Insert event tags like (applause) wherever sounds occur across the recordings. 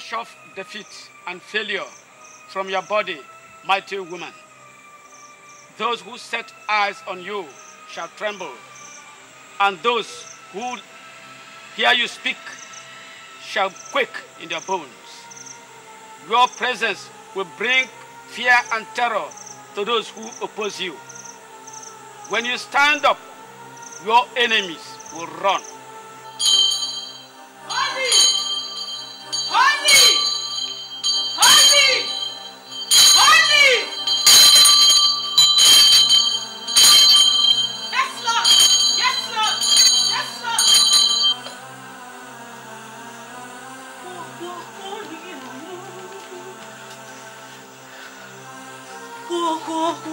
Wash off defeat and failure from your body, mighty woman. Those who set eyes on you shall tremble, and those who hear you speak shall quake in their bones. Your presence will bring fear and terror to those who oppose you. When you stand up, your enemies will run. Baka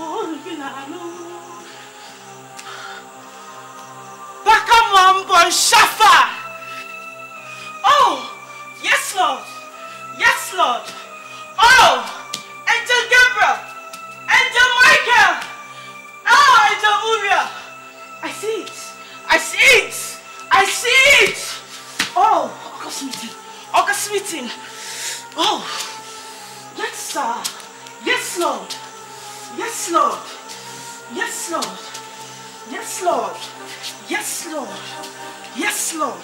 Mambo Shafa! Oh! Yes, Lord! Yes, Lord! Oh! Angel Gabriel! Angel Michael! Oh, Angel Uriel! I see it! I see it! I see it! Oh! August meeting! Oh! Let's, uh, yes, Lord! Yes, Lord. Yes, Lord. Yes, Lord. Yes, Lord. Yes, Lord.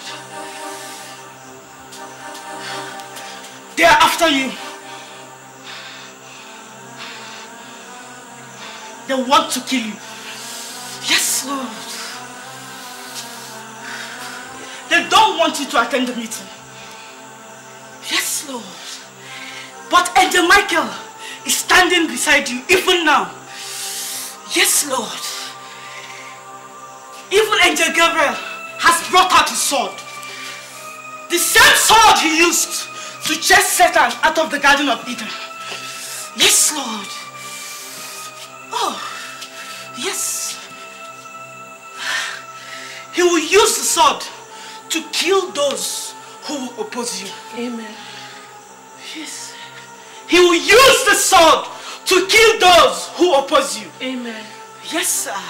They are after you. They want to kill you. Yes, Lord. They don't want you to attend the meeting. Yes, Lord. But Angel Michael, is standing beside you even now. Yes, Lord. Even Angel Gabriel has brought out his sword. The same sword he used to chase Satan out of the Garden of Eden. Yes, Lord. Oh, yes. He will use the sword to kill those who will oppose you. Amen. Yes. He will use the sword to kill those who oppose you. Amen. Yes, sir.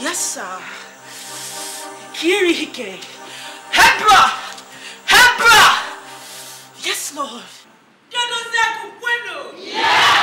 Yes, sir. Kirihike. Hebra! Hebra! Yes, Lord. Yes!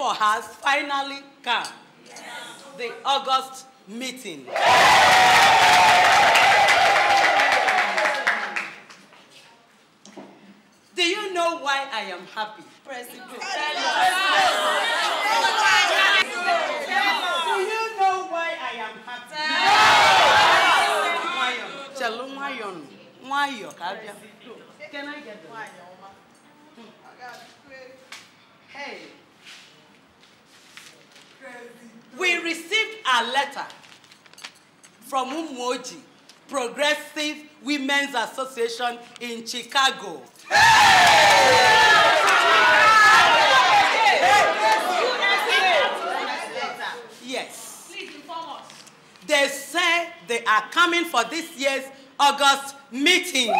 for has finally come. The August meeting. Do you know why I am happy? Do you know why I am happy? Chelu Mayon. Mayo, Kabia. Can I get the Mayo? Hmm. Hey. We received a letter from Umoji, Progressive Women's Association in Chicago. Yes. Please inform us. They say they are coming for this year's August meeting.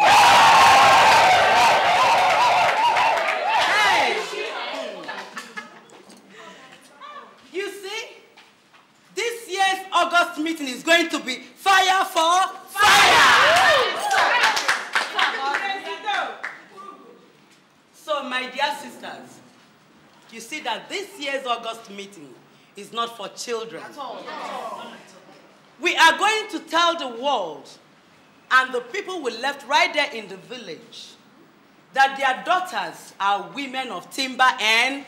first meeting is going to be fire for fire. fire. So, my dear sisters, you see that this year's August meeting is not for children. At all. We are going to tell the world and the people we left right there in the village that their daughters are women of timber and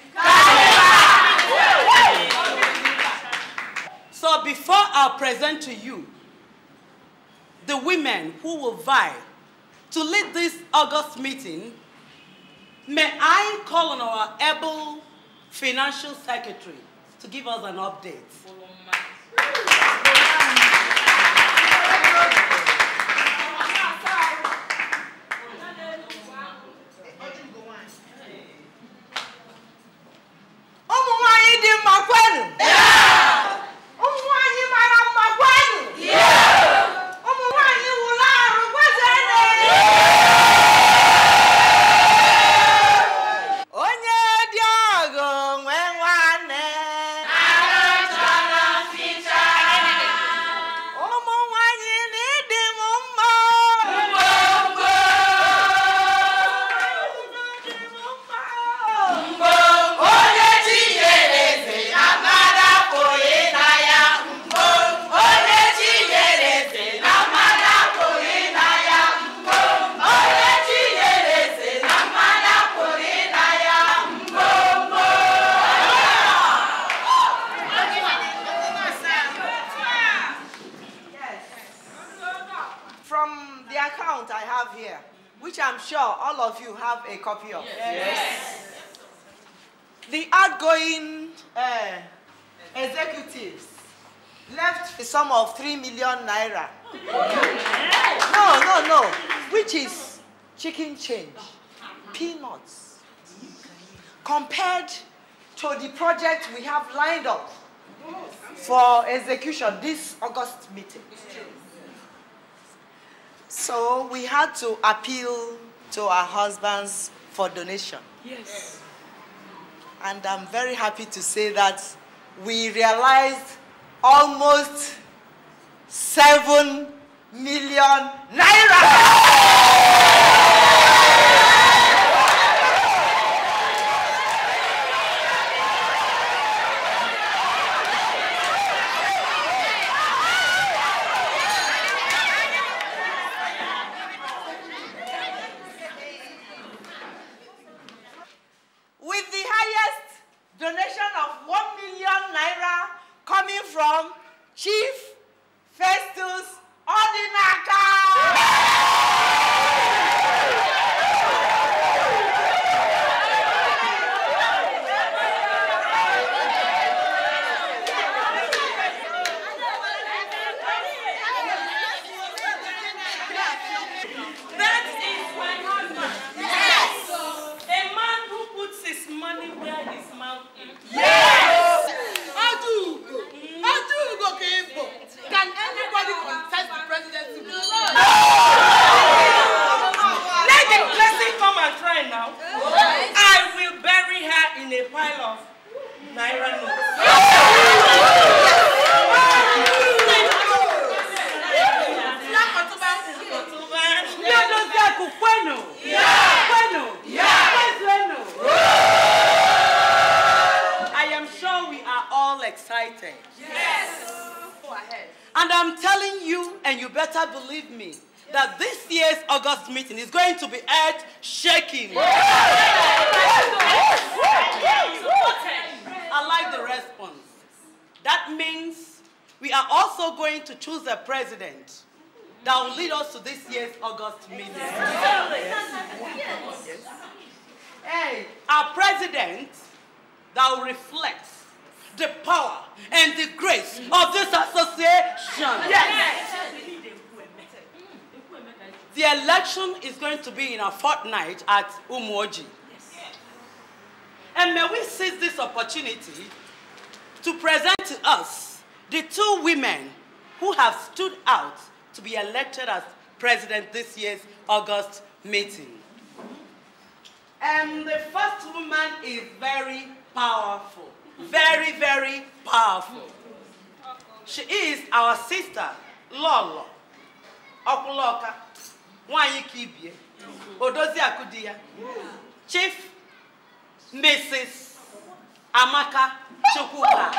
so before I present to you the women who will vie to lead this August meeting, may I call on our able financial secretary to give us an update. this August meeting. So we had to appeal to our husbands for donation. Yes. And I'm very happy to say that we realized almost 7 million naira. August meeting. Yes. Hey, our president that will reflect the power and the grace of this association. Yes. Mm. The election is going to be in a fortnight at Umoji. And may we seize this opportunity to present to us the two women who have stood out to be elected as president this year's August meeting. And um, the first woman is very powerful, very, very powerful. She is our sister, Lolo, Okuloka, Wanyi Kibie, Odozi akudiya. Chief Mrs. Amaka Chukwuka.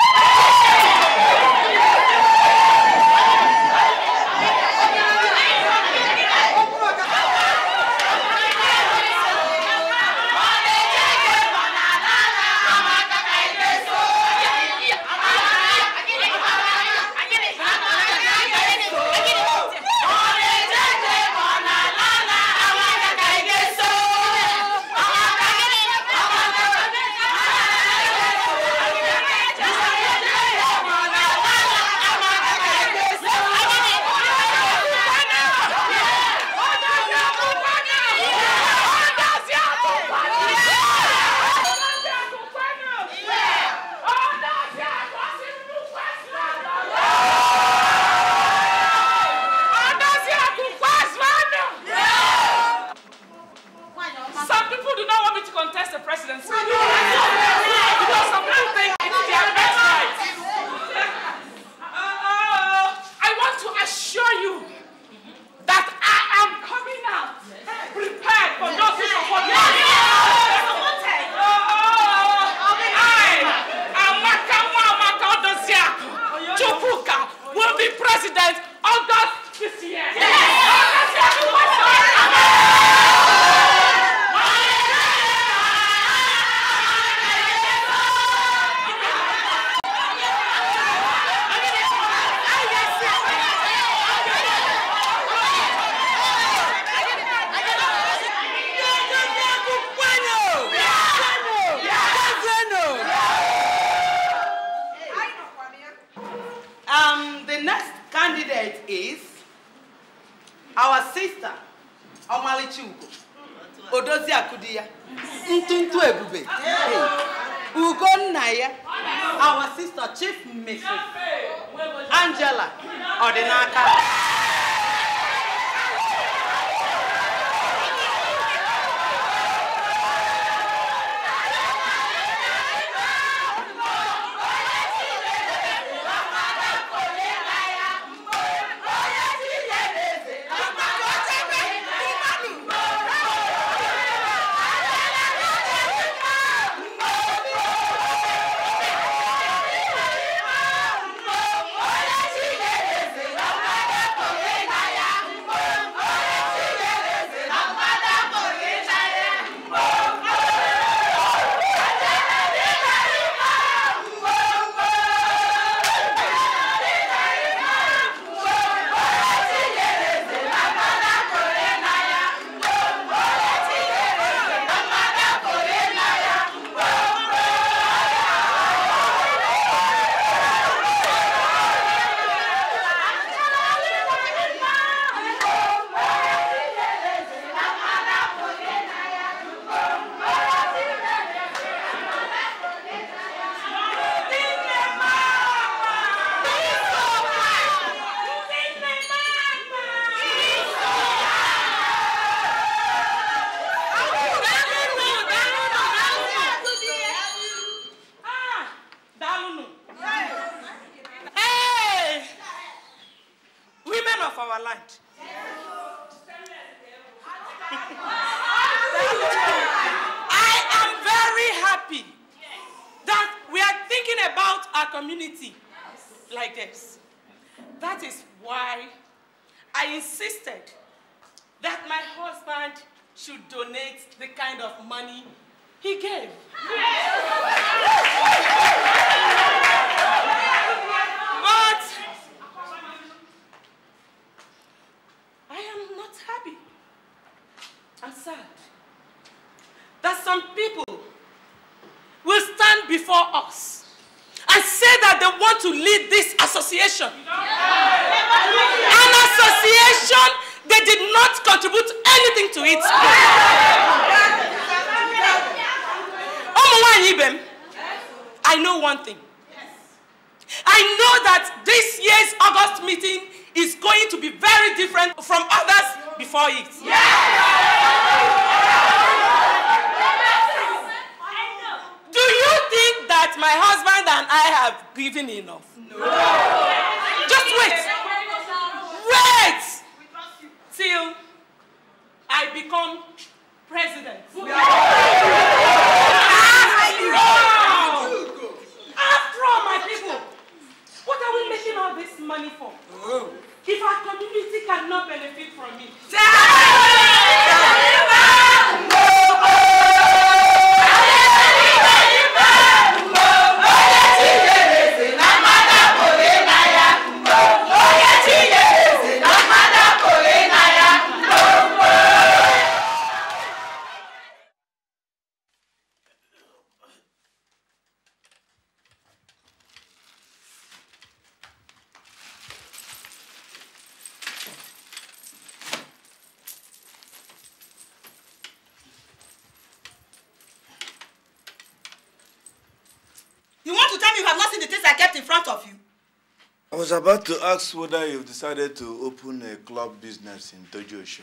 about to ask whether you've decided to open a club business in Tojo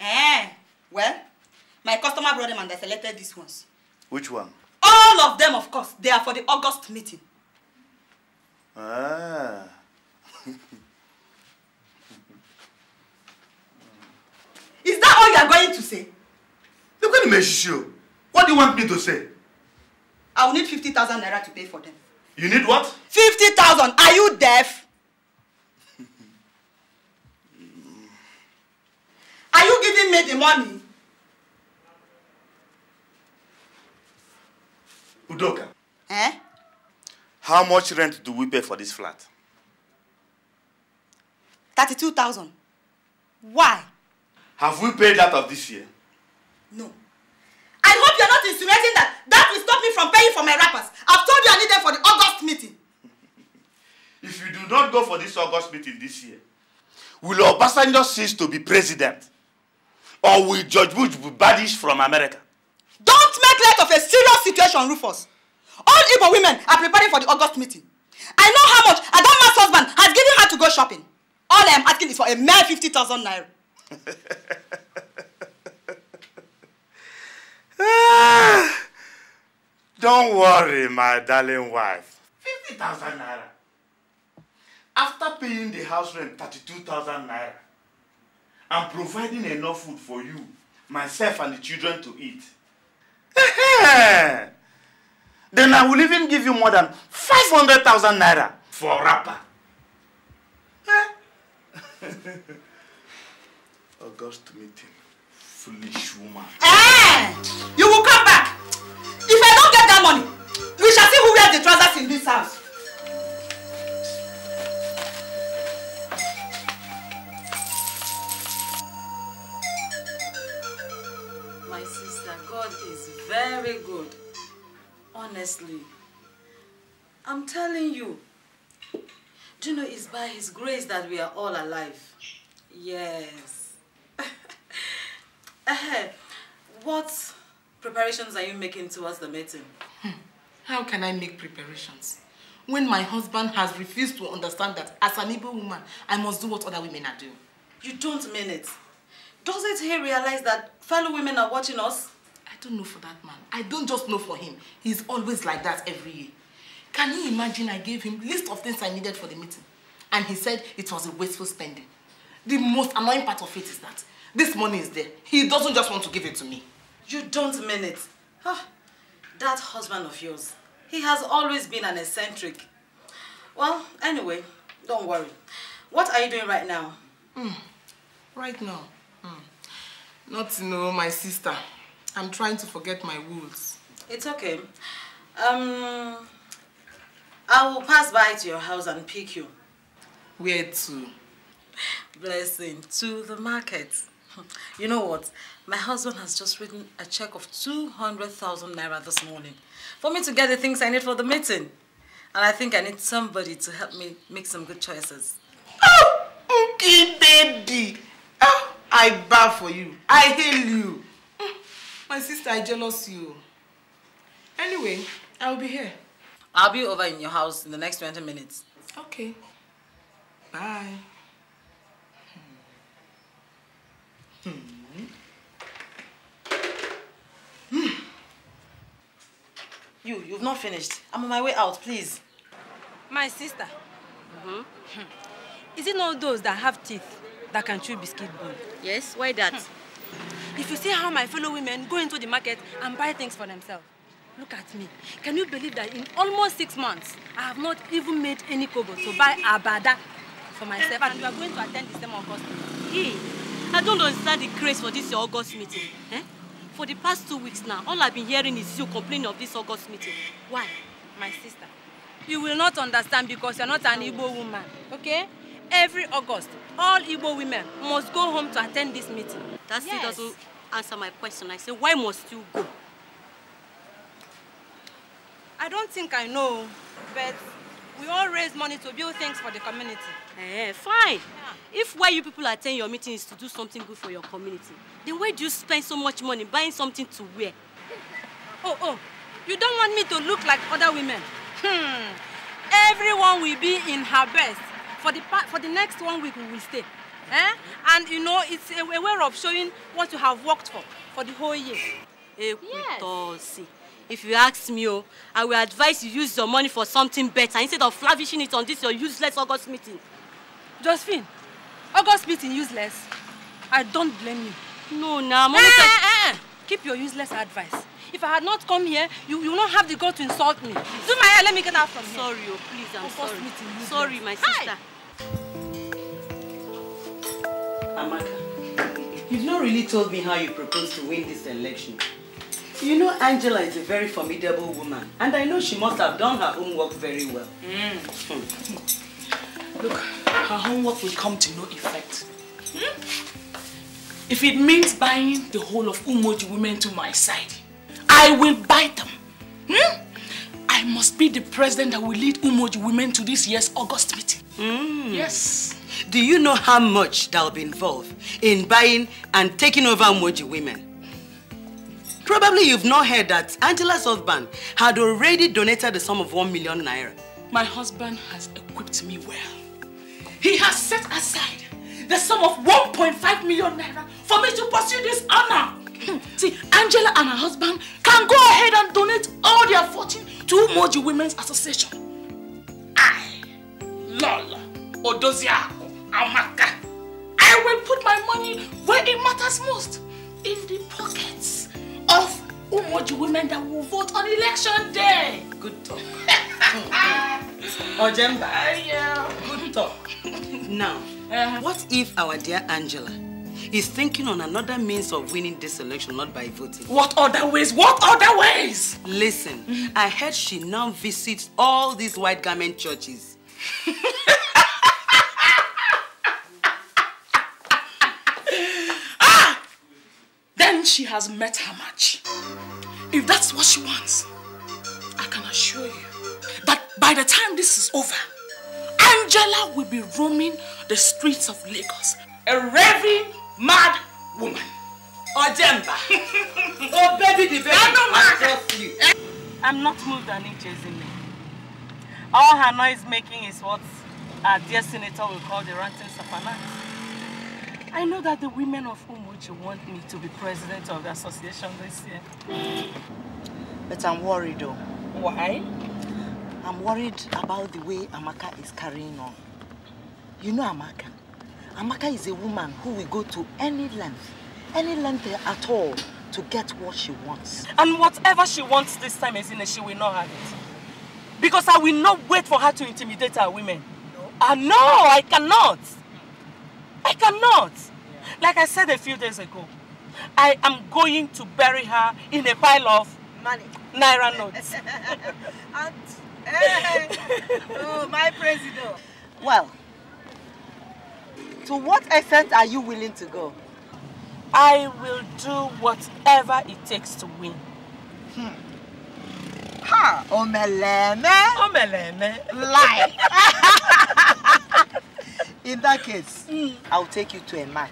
Eh, well, my customer brought them and I selected these ones. Which one? All of them, of course. They are for the August meeting. Ah. (laughs) Is that all you are going to say? Look at me, Shishio. What do you want me to say? I will need 50,000 naira to pay for them. You need what? 50,000. Are you deaf? giving me the money? Udoka. Eh? How much rent do we pay for this flat? 32,000. Why? Have we paid that of this year? No. I hope you're not insinuating that that will stop me from paying for my rappers. I've told you I need them for the August meeting. if you do not go for this August meeting this year, will Obasanjo cease to be president? or will Judge Bush be banished from America? Don't make light of a serious situation, Rufus. All Igbo women are preparing for the August meeting. I know how much Adama's husband has given her to go shopping. All I am asking is for a mere 50,000 naira. (laughs) don't worry, my darling wife. 50,000 naira. After paying the house rent 32,000 naira, I'm providing enough food for you, myself, and the children to eat. (laughs) then I will even give you more than 500,000 naira for a wrapper. (laughs) August meeting. Foolish woman. Hey! Eh! You will come back. If I don't get that money, we shall see who wears the trousers in this house. honestly. I'm telling you. Do you know it's by His grace that we are all alive? Yes. (laughs) what preparations are you making towards the meeting? Hmm. How can I make preparations? When my husband has refused to understand that as an Igbo woman, I must do what other women are doing. You don't mean it. Doesn't he realize that fellow women are watching us? don't know for that man. I don't just know for him. He's always like that every year. Can you imagine I gave him list of things I needed for the meeting? And he said it was a wasteful spending. The most annoying part of it is that this money is there. He doesn't just want to give it to me. You don't mean it. Huh. Ah, that husband of yours, he has always been an eccentric. Well, anyway, don't worry. What are you doing right now? Mm. Right now? Mm. Not you know, my sister. I'm trying to forget my rules. It's okay. Um, I will pass by to your house and pick you. Where to? Blessing, to the market. (laughs) You know what? My husband has just written a check of 200,000 naira this morning for me to get the things I need for the meeting. And I think I need somebody to help me make some good choices. Oh, okay, baby. Oh, I bow for you. I hail you. My sister, I jealous you. Anyway, I'll be here. I'll be over in your house in the next 20 minutes. Okay. Bye. Hmm. Hmm. hmm. You, you've not finished. I'm on my way out, please. My sister. Mm -hmm. Is it not those that have teeth that can chew biscuit bone? Yes, why that? Hmm. If you see how my fellow women go into the market and buy things for themselves, look at me. Can you believe that in almost six months, I have not even made any kobo to buy abada for myself and eh, you are going to attend the same August meeting? Hey, I don't understand the craze for this August meeting. Eh? For the past two weeks now, all I've been hearing is you complaining of this August meeting. Why? My sister, you will not understand because you're not an Igbo woman, okay? Every August, all Igbo women must go home to attend this meeting. That still yes. doesn't answer my question. I say, why must you go? I don't think I know, but we all raise money to build things for the community. Eh, fine. Yeah. If why you people attend your meeting is to do something good for your community, then why do you spend so much money buying something to wear? oh, oh, you don't want me to look like other women. Hmm. Everyone will be in her best for the for the next one week we will stay. Eh? And you know, it's a, a way of showing what you have worked for for the whole year. Eh, yes. If you ask me, oh, I will advise you use your money for something better instead of lavishing it on this your useless August meeting. Josephine, August meeting useless. I don't blame you. No, now, nah, eh, eh, eh, eh. Keep your useless advice. If I had not come here, you, you will not have the guts to insult me. Do my hair, let me get out from here. Sorry, oh, please, I'm August sorry. Meeting, sorry, my sister. Hi. Amaka, you've not really told me how you propose to win this election. You know Angela is a very formidable woman and I know she must have done her homework very well. Mm. Hmm. Look, her homework will come to no effect. Hmm? If it means buying the whole of Umoji women to my side, I will buy them. Hmm? I must be the president that will lead Umoji women to this year's August meeting. Mm. Yes. Do you know how much that'll be involved in buying and taking over Moji women? Probably you've not heard that Angela's husband had already donated the sum of one million naira. My husband has equipped me well. He has set aside the sum of 1.5 million naira for me to pursue this honor. Hmm. See, Angela and her husband can go ahead and donate all their fortune to Mojo Women's Association. I, Lola Odoziako. Amaka. I will put my money where it matters most. In the pockets of Umoji women that will vote on election day. Good talk. (laughs) Ojemba. Uh, yeah. Good talk. now, uh-huh. what if our dear Angela is thinking on another means of winning this election, not by voting. What other ways? What other ways? Listen, I heard she now visits all these white garment churches. (laughs) she has met her match. If that's what she wants, I can assure you that by the time this is over, Angela will be roaming the streets of Lagos, a raving mad woman. Ojemba. (laughs) oh, baby, the baby. I I'm not moved and it chasing me. All her noise making is what our dear senator will call the ranting safanat. I know that the women of Umuchi want me to be president of the association this year. But I'm worried though. Why? I'm worried about the way Amaka is carrying on. You know Amaka. Amaka is a woman who will go to any length, any length at all to get what she wants. And whatever she wants this time, Ezine, she will not have it. Because I will not wait for her to intimidate our women. No. Uh, no, I cannot. I cannot. Like I said a few days ago, I am going to bury her in a pile of money, naira notes. Aunt, (laughs) hey, oh, my president. Well, to what extent are you willing to go? I will do whatever it takes to win. Hmm. Ha! Omeleme! Omeleme! Lie! (laughs) (laughs) In that case, mm. I'll take you to a man.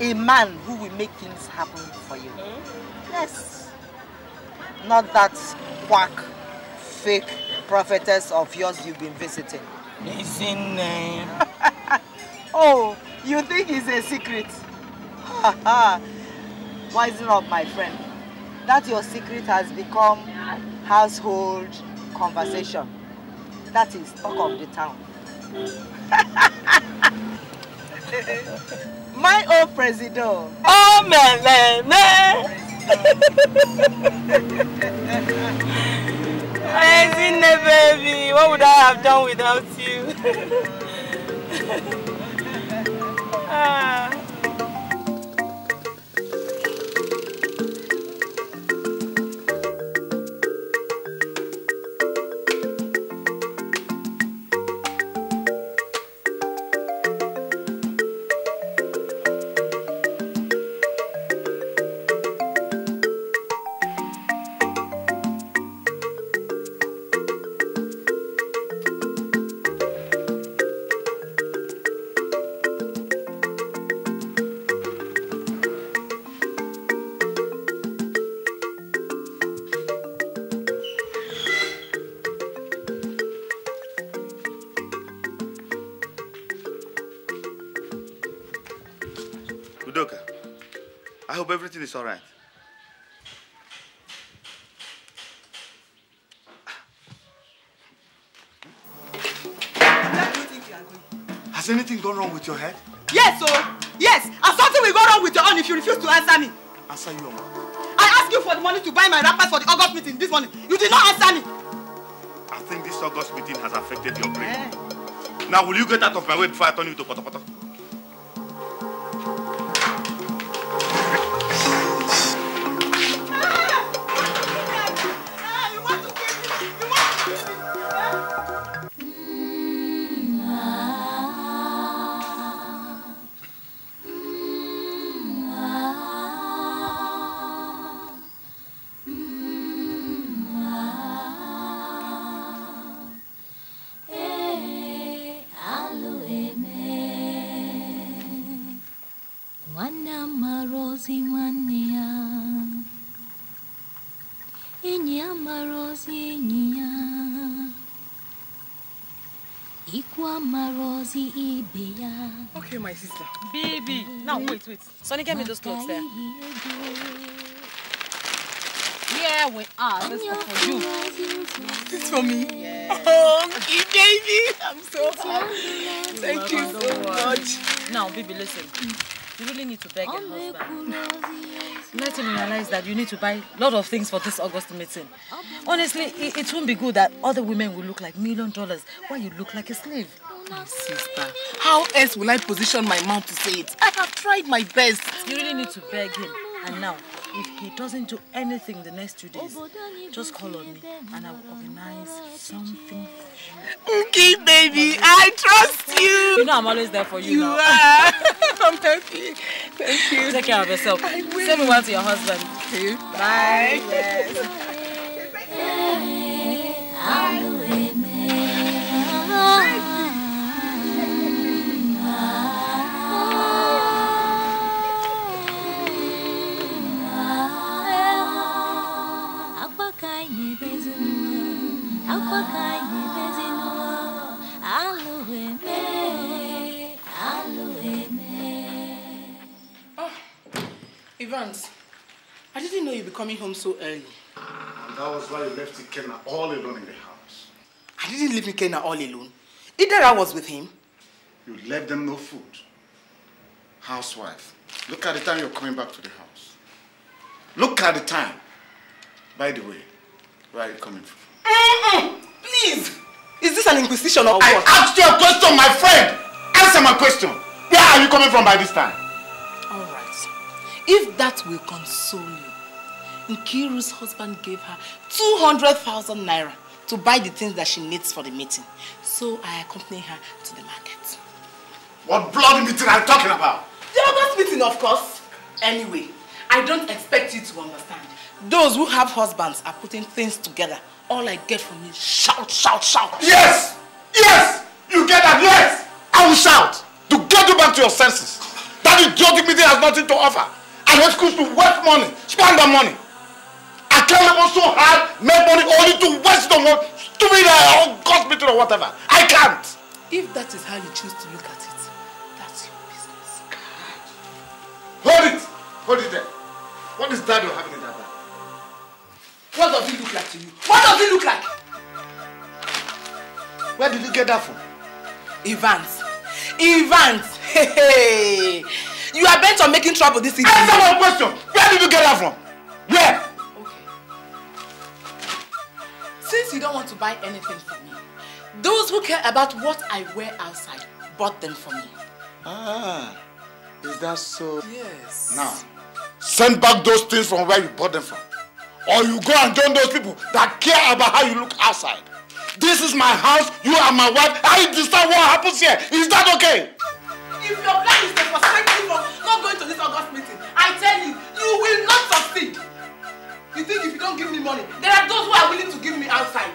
A man who will make things happen for you. Mm. Yes. Not that quack, fake prophetess of yours you've been visiting. His name. (laughs) oh, you think it's a secret? (laughs) it up, my friend. That your secret has become household conversation. That is talk of the town. (laughs) My old president. Oh, man, man, man. President, (laughs) baby, what would I have done without you? (laughs) ah. is all right. Has anything gone wrong with your head? Yes, oh, yes. And something will go wrong with your own if you refuse to answer me. Answer you, Oma. I asked you for the money to buy my wrappers for the August meeting this morning. You did not answer me. I think this August meeting has affected your brain. Yeah. Now, will you get out of my way before I turn you to potopoto? it. Sonny, get me those clothes there. Yeah, we are. This is for you. It's for me. Yeah. Oh, you baby. I'm so happy. Thank you so much. Now, baby, listen. You really need to beg your husband. Let him realize that you need to buy a lot of things for this August meeting. Honestly, it, it won't be good that other women will look like million dollars while you look like a slave. My sister, how else will I position my mouth to say it? tried my best. You really need to beg him. And now, if he doesn't do anything the next two days, just call on me and I will organize something for you. Okay, baby, I trust you. You know I'm always there for you, you now. are. (laughs) (laughs) I'm happy. Thank you. Take care of yourself. I will. Send me one to your husband. Okay. Bye. Bye. Yes. Ah, Evans, I didn't know you'd be coming home so early. that was why you left Ikenna all alone in the house. I didn't leave Ikenna all alone. Either I was with him. You left them no food. Housewife, look at the time you're coming back to the house. Look at the time. By the way, where are you coming from? Please. Is this an inquisition or what? I asked you a question, my friend. Answer my question. Where are you coming from by this time? All right. If that will console you, Nkiru's husband gave her 200,000 naira to buy the things that she needs for the meeting. So I accompany her to the market. What bloody meeting are you talking about? The August meeting, of course. Anyway, I don't expect you to understand. Those who have husbands are putting things together. All I get from you is shout, shout, shout. Yes! Yes! You get that? Yes! I will shout to get you back to your senses. That idiotic meeting has nothing to offer. I went schools to waste money, spend that money. I carry on so hard, make money only to waste the money, stupid uh, or God meeting or whatever. I can't. If that is how you choose to look at it, that's your business. Hold it! Hold it there. What is that you're having in that bag? What does he look like to you? What does he look like? Where did you get that from? Evans. Evans! Hey, hey. You are bent on making trouble this evening. Answer my question! Where did you get that from? Where? Okay. Since you don't want to buy anything for me, those who care about what I wear outside bought them for me. Ah, is that so? Yes. Now, send back those things from where you bought them from. or you go and join those people that care about how you look outside. This is my house, you are my wife, I decide what happens here. Is that okay? If your plan is the perspective of not going to this August meeting, I tell you, you will not succeed. You think if you don't give me money, there are those who are willing to give me outside.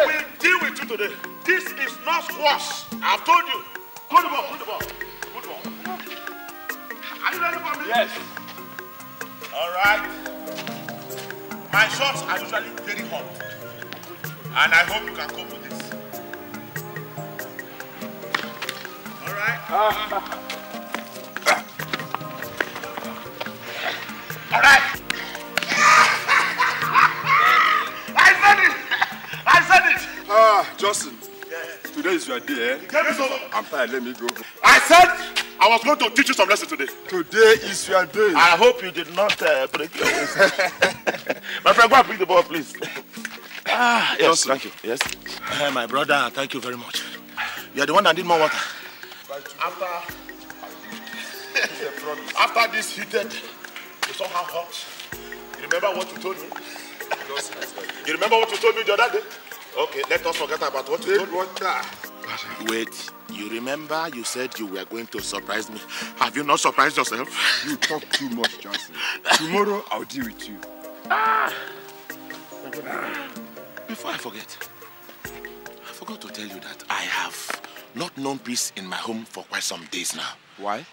I will deal with you today. This is not squash. I've told you. Good ball, good ball, good ball. Are you ready for me? Yes. All right. My shots are usually very hot. And I hope you can cope with this. All right. (laughs) All right. Ah, Justin. Today is your day, eh? over. I'm tired, let me go. I said I was going to teach you some lesson today. Today is your day. I hope you did not uh, break your waist. (laughs) my friend, go and pick the ball, please. Ah, yes, thank you. Yes. Uh, my brother, thank you very much. You are the one that need more water. After, (laughs) after this heated, you somehow hot. You remember what you told me? you remember what you told me the other day? Okay, let us forget about what you told Roger. Wait, you remember you said you were going to surprise me. Have you not surprised yourself? You talk too much, Johnson. Tomorrow I'll deal with you. Ah! Before I forget, I forgot to tell you that I have not known peace in my home for quite some days now. Why?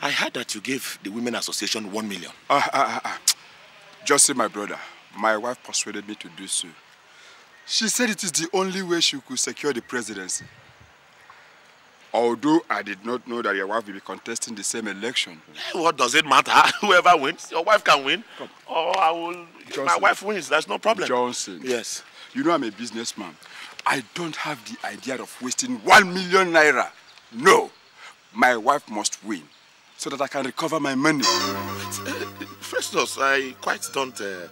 I heard that you gave the Women Association one million. Ah, ah, ah, ah. Just see, my brother, my wife persuaded me to do so. She said it is the only way she could secure the presidency. Although I did not know that your wife will be contesting the same election. What does it matter? (laughs) Whoever wins, your wife can win. Come. Oh, I will. Johnson. My wife wins. That's no problem. Johnson. Yes. You know I'm a businessman. I don't have the idea of wasting one million naira. No, my wife must win so that I can recover my money. (laughs) Festus, I quite don't. Uh,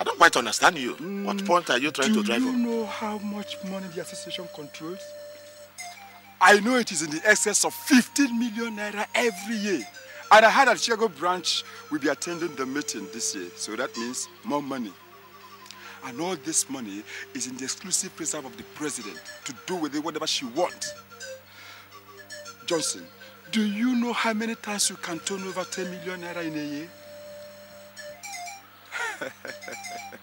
I don't quite understand you. Mm, what point are you trying to drive on? Do you know how much money the association controls? I know it is in the excess of 15 million naira every year. And I heard that Chicago branch will be attending the meeting this year. So that means more money. And all this money is in the exclusive preserve of the president to do with it whatever she wants. Johnson, do you know how many times you can turn over 10 million naira in a year? (laughs)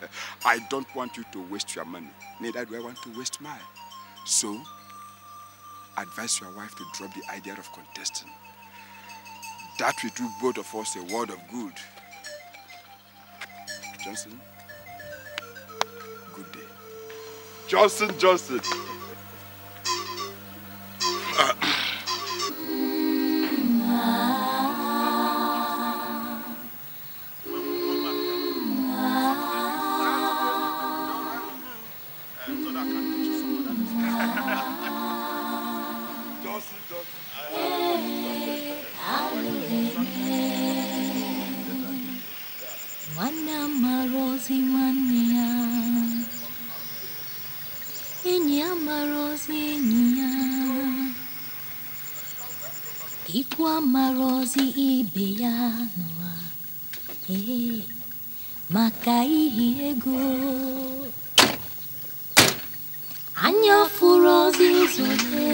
(laughs) I don't want you to waste your money. Neither do I want to waste mine. So, advise your wife to drop the idea of contesting. That will do both of us a world of good. Johnson, good day. Johnson, Johnson. piano a e eh, makai ego anya furu ozi zute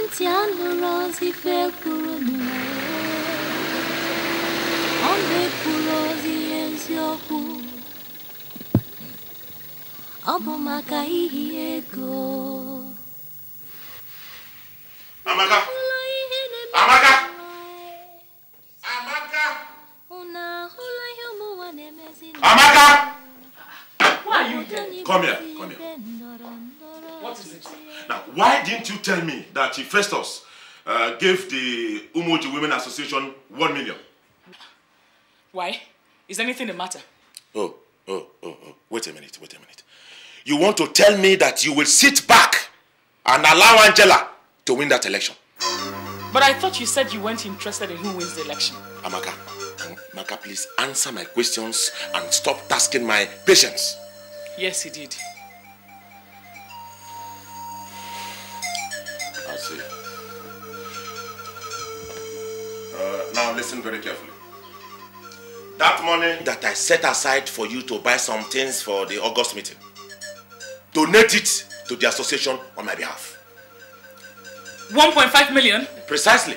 ntị anụrụ ozi fekwuru ọ enzioku, ozi makai ọ ego That Festus uh, gave the Umoji Women Association one million. Why? Is anything the matter? Oh, oh, oh, oh. Wait a minute, wait a minute. You want to tell me that you will sit back and allow Angela to win that election? But I thought you said you weren't interested in who wins the election. Amaka, Amaka, please answer my questions and stop tasking my patience. Yes, he did. listen very carefully. That money that I set aside for you to buy some things for the August meeting, donate it to the association on my behalf. 1.5 million? Precisely.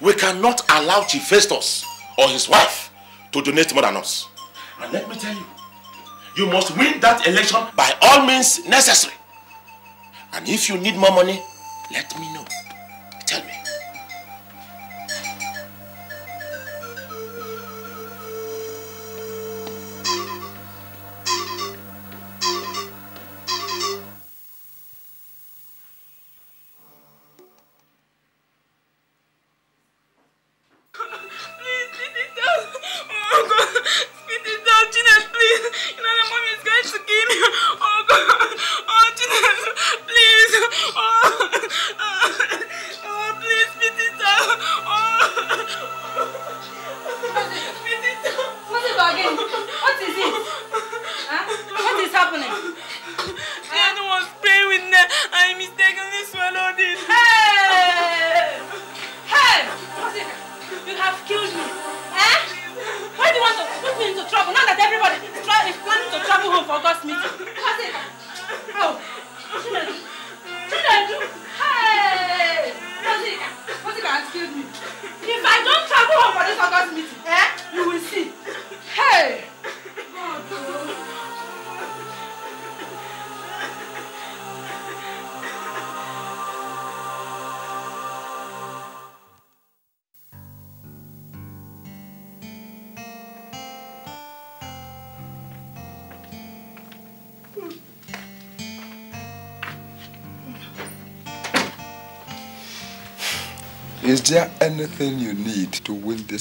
We cannot allow Chief Festus or his wife to donate more than us. And let me tell you, you must win that election by all means necessary. And if you need more money, let me know.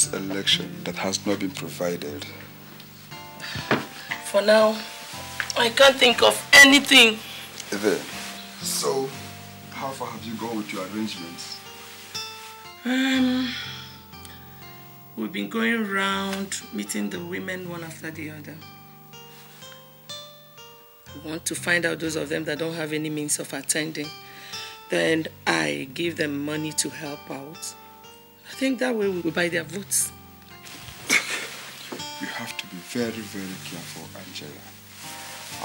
this election that has not been provided? For now, I can't think of anything. There. So, how far have you gone with your arrangements? Um, we've been going around meeting the women one after the other. We want to find out those of them that don't have any means of attending. Then I give them money to help out. I think that way we will buy their votes. you have to be very, very careful, Angela.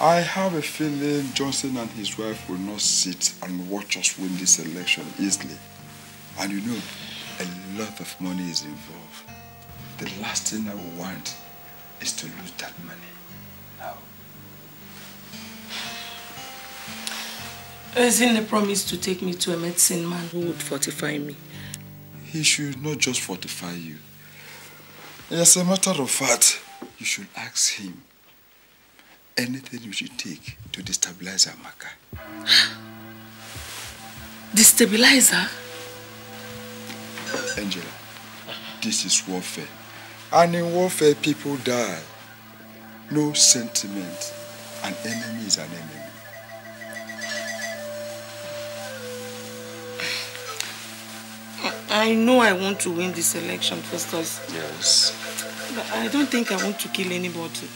I have a feeling Johnson and his wife will not sit and watch us win this election easily. And you know, a lot of money is involved. The last thing I want is to lose that money now. Ezinne promised to take me to a medicine man who would fortify me he should not just fortify you. As a matter of fact, you should ask him anything you should take to destabilize Amaka. (gasps) Destabilize her? Angela, this is warfare. And in warfare, people die. No sentiment. An enemy is an enemy. I know I want to win this election, first. Yes. But I don't think I want to kill anybody.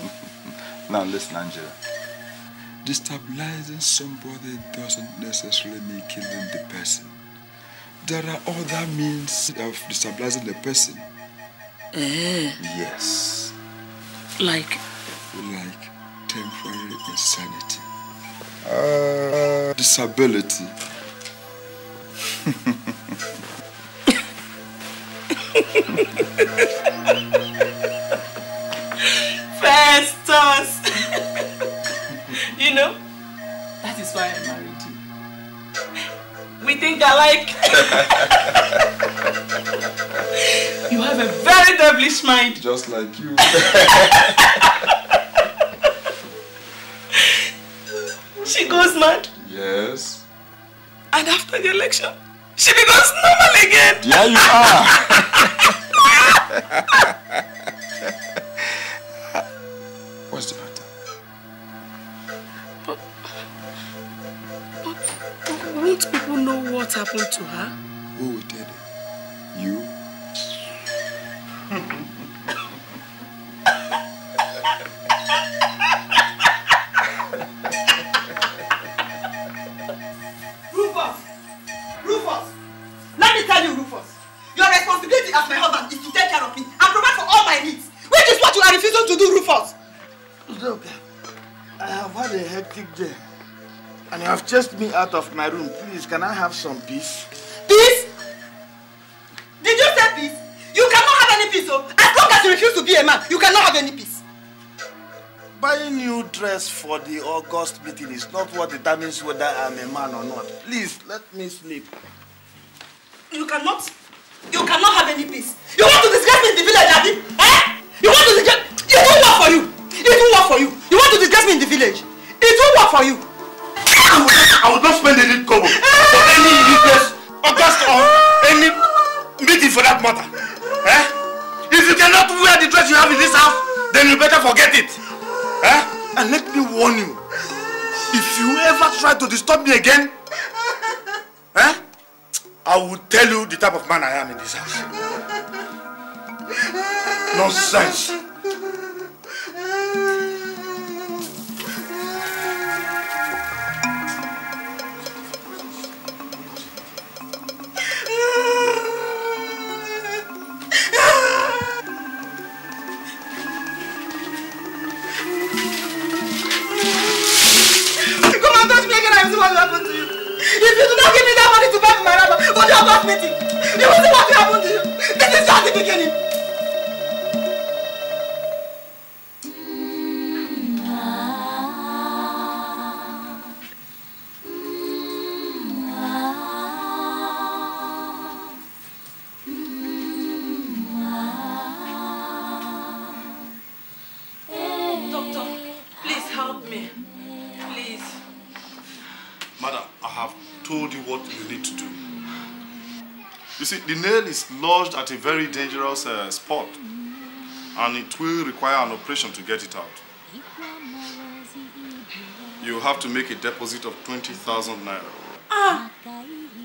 (laughs) now listen, Angela. Destabilizing somebody doesn't necessarily mean killing the person. There are other means of destabilizing the person. Eh? Yes. Like? Like temporary insanity. Uh, disability. (laughs) Festus! (laughs) you know, that is why I married you. We think alike. (laughs) you have a very devilish mind. Just like you. (laughs) she goes mad. Yes. And after the election? She becomes normal again. Yeah, you are. What's the matter? But, but won't people know what happened to her? Who did it? You Just me out of my room. Please, can I have some peace? Peace? Did you say peace? You cannot have any peace, oh! As long as you refuse to be a man, you cannot have any peace. Buying new dress for the August meeting is not what determines whether I'm a man or not. Please, let me sleep. You cannot. You cannot have any peace. You want to disgrace me in the village, Abi? Eh? You want to disgrace... It won't work for you. It won't work for you. You want to disgrace me in the village. It won't work for you. I will not spend any kobo for any useless August or any meeting for that matter. Eh? If you cannot wear the dress you have in this house, then you better forget it. Eh? And let me warn you, if you ever try to disturb me again, eh? I will tell you the type of man I am in this house. Nonsense. If you do not give me that money to buy my laptop, what do you want me to? You will see what will happen to you. This is just the beginning. nail is lodged at a very dangerous uh, spot and it will require an operation to get it out. You have to make a deposit of 20,000 naira. Ah,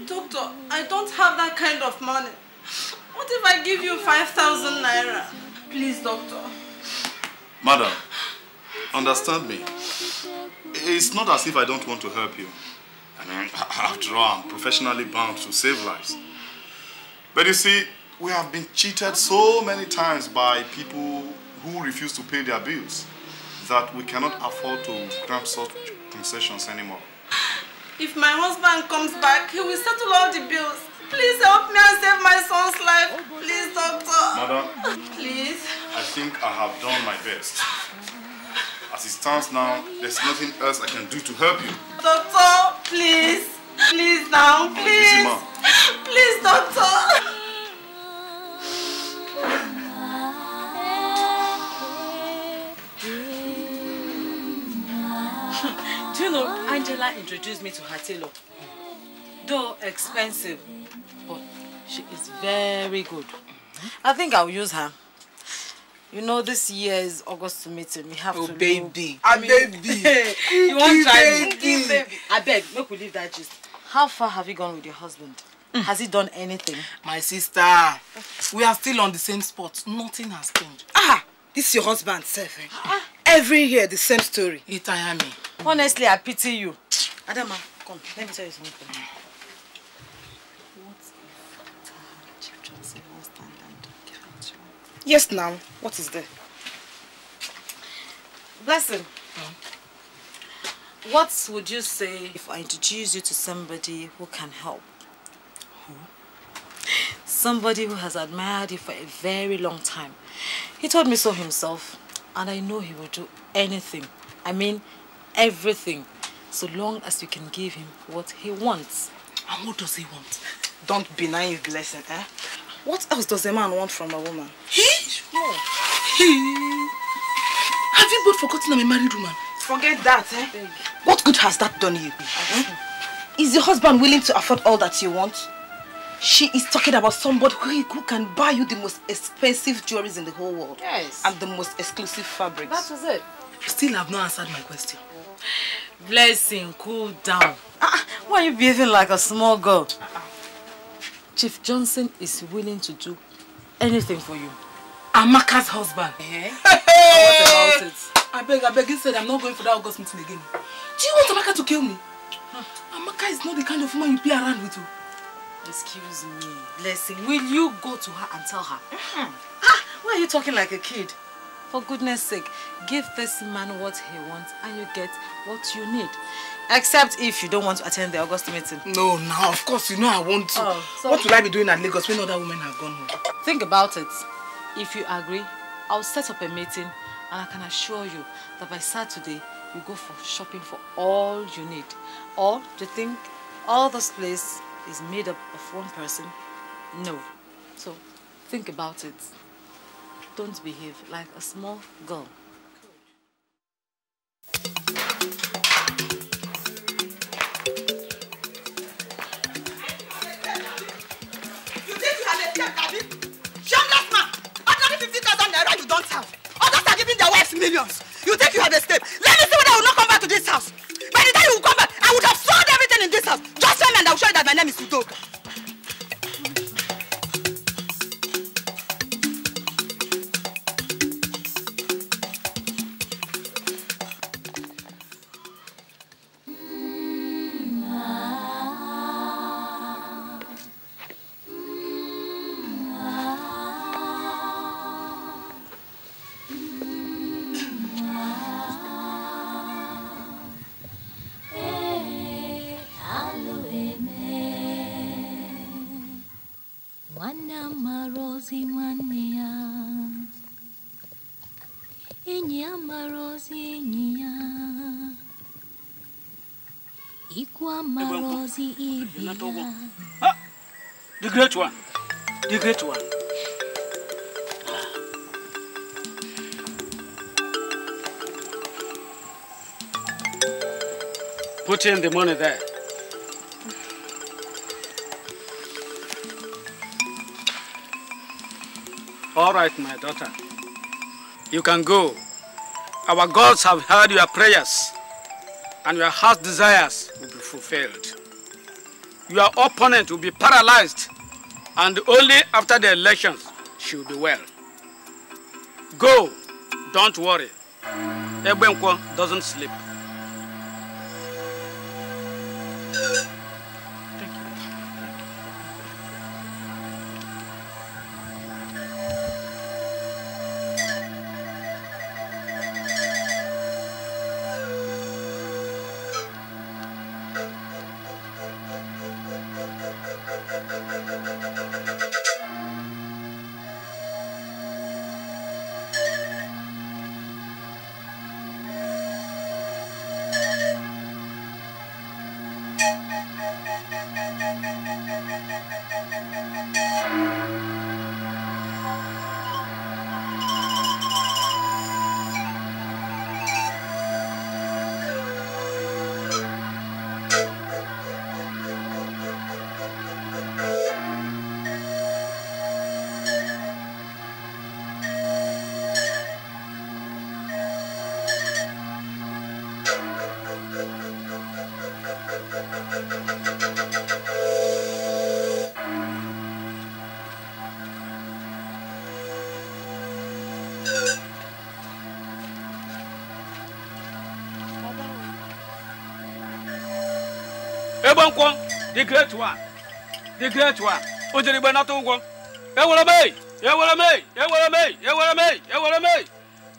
doctor, I don't have that kind of money. What if I give you 5,000 naira? Please, doctor. Madam, understand me. It's not as if I don't want to help you. I mean, (laughs) after all, I'm professionally bound to save lives. But you see, we have been cheated so many times by people who refuse to pay their bills that we cannot afford to grant such concessions anymore. If my husband comes back, he will settle all the bills. Please help me and save my son's life. Please, doctor. Madam. Please. I think I have done my best. As it stands now, there's nothing else I can do to help you. Doctor, please. Please now, please. Please, doctor. Do you know, Angela introduced me to her tailor. Though expensive, but she is very good. I think I'll use her. You know, this year is August meeting. We have oh, to baby. Know. I baby. (laughs) you want to try baby. I beg, make we leave that just. How far have you gone with your husband? Mm. Has he done anything? My sister, we are still on the same spot. Nothing has changed. Ah, this is your husband, self. Eh? Ah, ah. Every year, the same story. Itayami. Honestly, I pity you. Adama, come. Let me tell you something. Yes, now. What is there? Blessing. Mm. What would you say if I introduce you to somebody who can help? Who? Somebody who has admired you for a very long time. He told me so himself and I know he will do anything. I mean everything. So long as you can give him what he wants. And what does he want? Don't deny naive, blessing, eh? What else does a man want from a woman? He? He? Have you both forgotten I'm a married woman? Forget that, eh? What good has that done you? Is your husband willing to afford all that you want? She is talking about somebody who, can buy you the most expensive jewelry in the whole world. Yes. And the most exclusive fabrics. That was it. Still have not answered my question. Blessing, cool down. Uh, why are you behaving like a small girl? Uh -uh. Chief Johnson is willing to do anything for you. Amaka's husband. Hey. Eh? (laughs) What about it? I beg, I beg. you, said I'm not going for that August meeting again. Do you want Amaka to kill me? Huh. Amaka is not the kind of woman you play around with. You. Oh. Excuse me. Blessing, will you go to her and tell her? Mm -hmm. Ah, why are you talking like a kid? For goodness sake, give this man what he wants and you get what you need. Except if you don't want to attend the August meeting. No, no, of course, you know I want to. Oh, so what will I be doing at Lagos when other women have gone home? Think about it. If you agree, I'll set up a meeting and I can assure you that by Saturday, you go for shopping for all you need. Or do you think all this place is made up of one person? No. So think about it. Don't behave like a small girl. stealing their wife's millions. You think you have escaped? Let me see whether I will not come back to this house. By the time you will come back, I would have sold everything in this house. Just tell me and I will show you that my name is Udoka. one. The great one. Put in the money there. All right, my daughter. You can go. Our gods have heard your prayers and your heart's desires will be fulfilled. Your opponent will be paralyzed and only after the elections she will be well. Go, don't worry. Ebenko doesn't sleep. nkwo the great one the great one o jere igbe nata ụgwọ ewere m eyi ewere m eyi ewere m eyi ewere m eyi ewere m eyi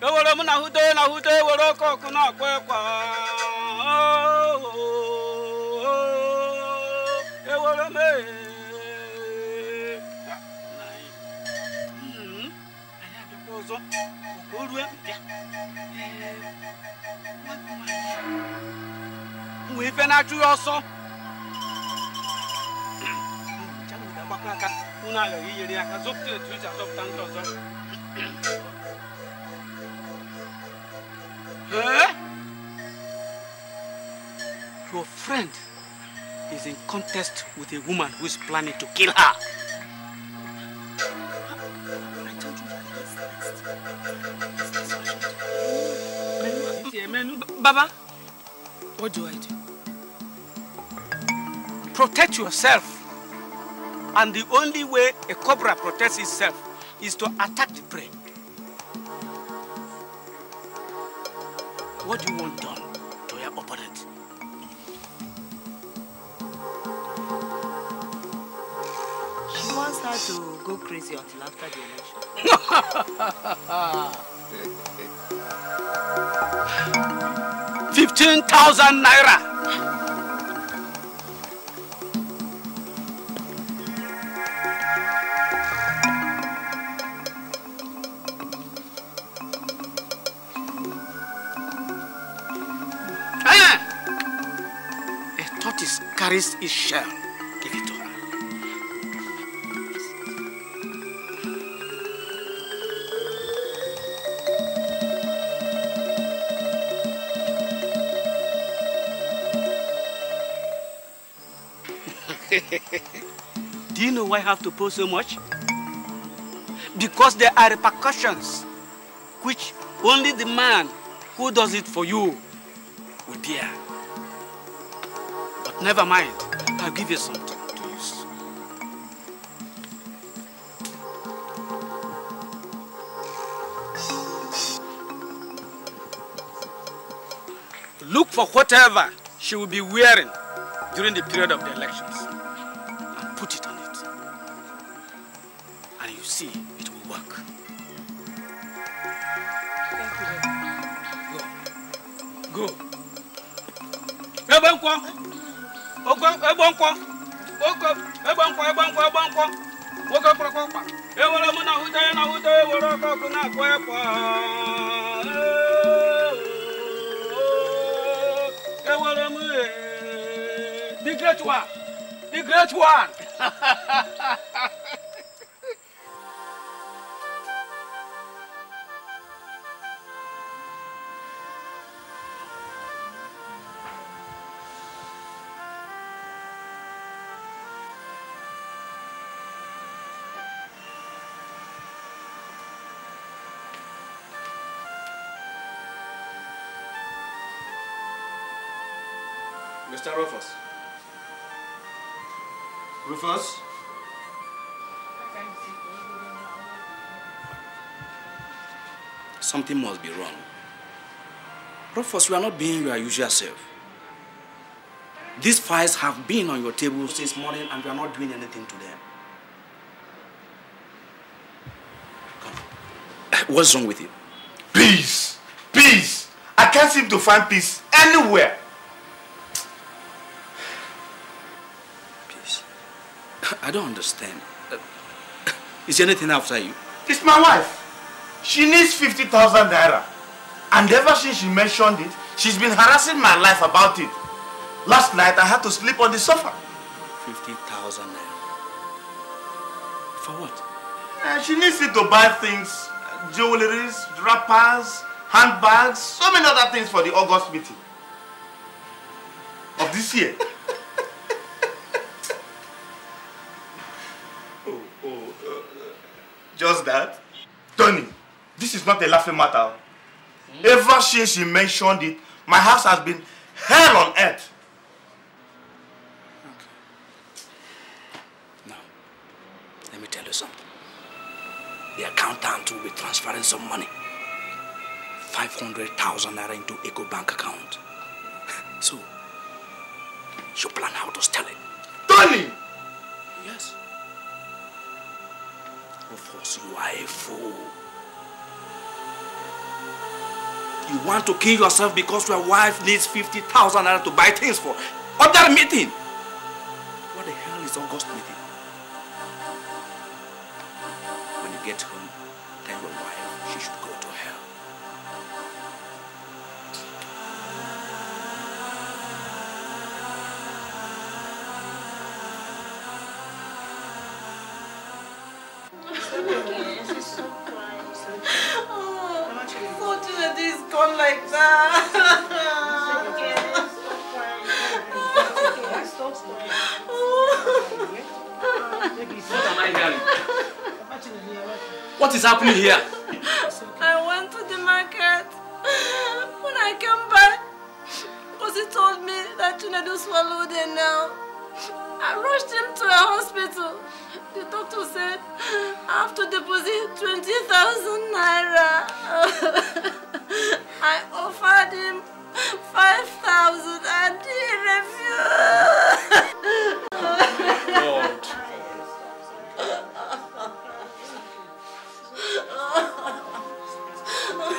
ewere m na hute na hute ewere oke ọkụ na akwa ịkwa ewere m eyi hmm, ọzọ nwee ife na-achụ ọsọ Your friend is in contest with a woman who is planning to kill her. Baba, what do I do? Protect yourself. And the only way a cobra protects itself is to attack the prey. What do you want done to your opponent? She wants her to go crazy until after the election. (laughs) 15,000 naira This is shall give it to her. (laughs) Do you know why I have to pay so much? Because there are repercussions which only the man who does it for you will bear. Never mind. I'll give you something to use. Look for whatever she will be wearing during the period of the elections and put it on it. And you see, it will work. Thank you. Go. Go. Go. egbo nkwọ egbo nkwọ egbo nkwọ egbo nkwọ nwoke kpọrọkpọkpa ewere mụ na ahụta ya na ahụta ewere ọkụ ọkụ na-akpọ ekwa ewere m e, the great one the great one (laughs) Mr. Rufus. Rufus? Something must be wrong. Rufus, you are not being your usual self. These files have been on your table since morning and you are not doing anything to them. Come. What's wrong with you? Peace! Peace! I can't seem to find peace anywhere. I don't understand. Uh, (coughs) is anything after you? It's my wife. She needs 50,000 naira. And ever since she mentioned it, she's been harassing my life about it. Last night, I had to sleep on the sofa. 50,000 naira. For what? Uh, she needs it to buy things. Jewelries, wrappers, handbags, so many other things for the August meeting. Of this year. Just that? Tony, this is not a laughing matter. Ever since you mentioned it, my house has been hell on earth. Okay. Now, let me tell you something. The accountant will be transferring some money. 500,000 naira into Eco Bank account. (laughs) so, you plan how to steal it. Tony! Yes. Of course, you are a fool. You want to kill yourself because your wife needs 50,000 to buy things for. Other meeting. What the hell is August meeting? When you get home, like that. What is happening here? I went to the market. When I came back, Kosi told me that Chinedu swallowed a nail. I rushed him to a hospital. The doctor said I have to deposit 20,000 naira. (laughs) I offered him 5,000 and he refused. Oh, (laughs)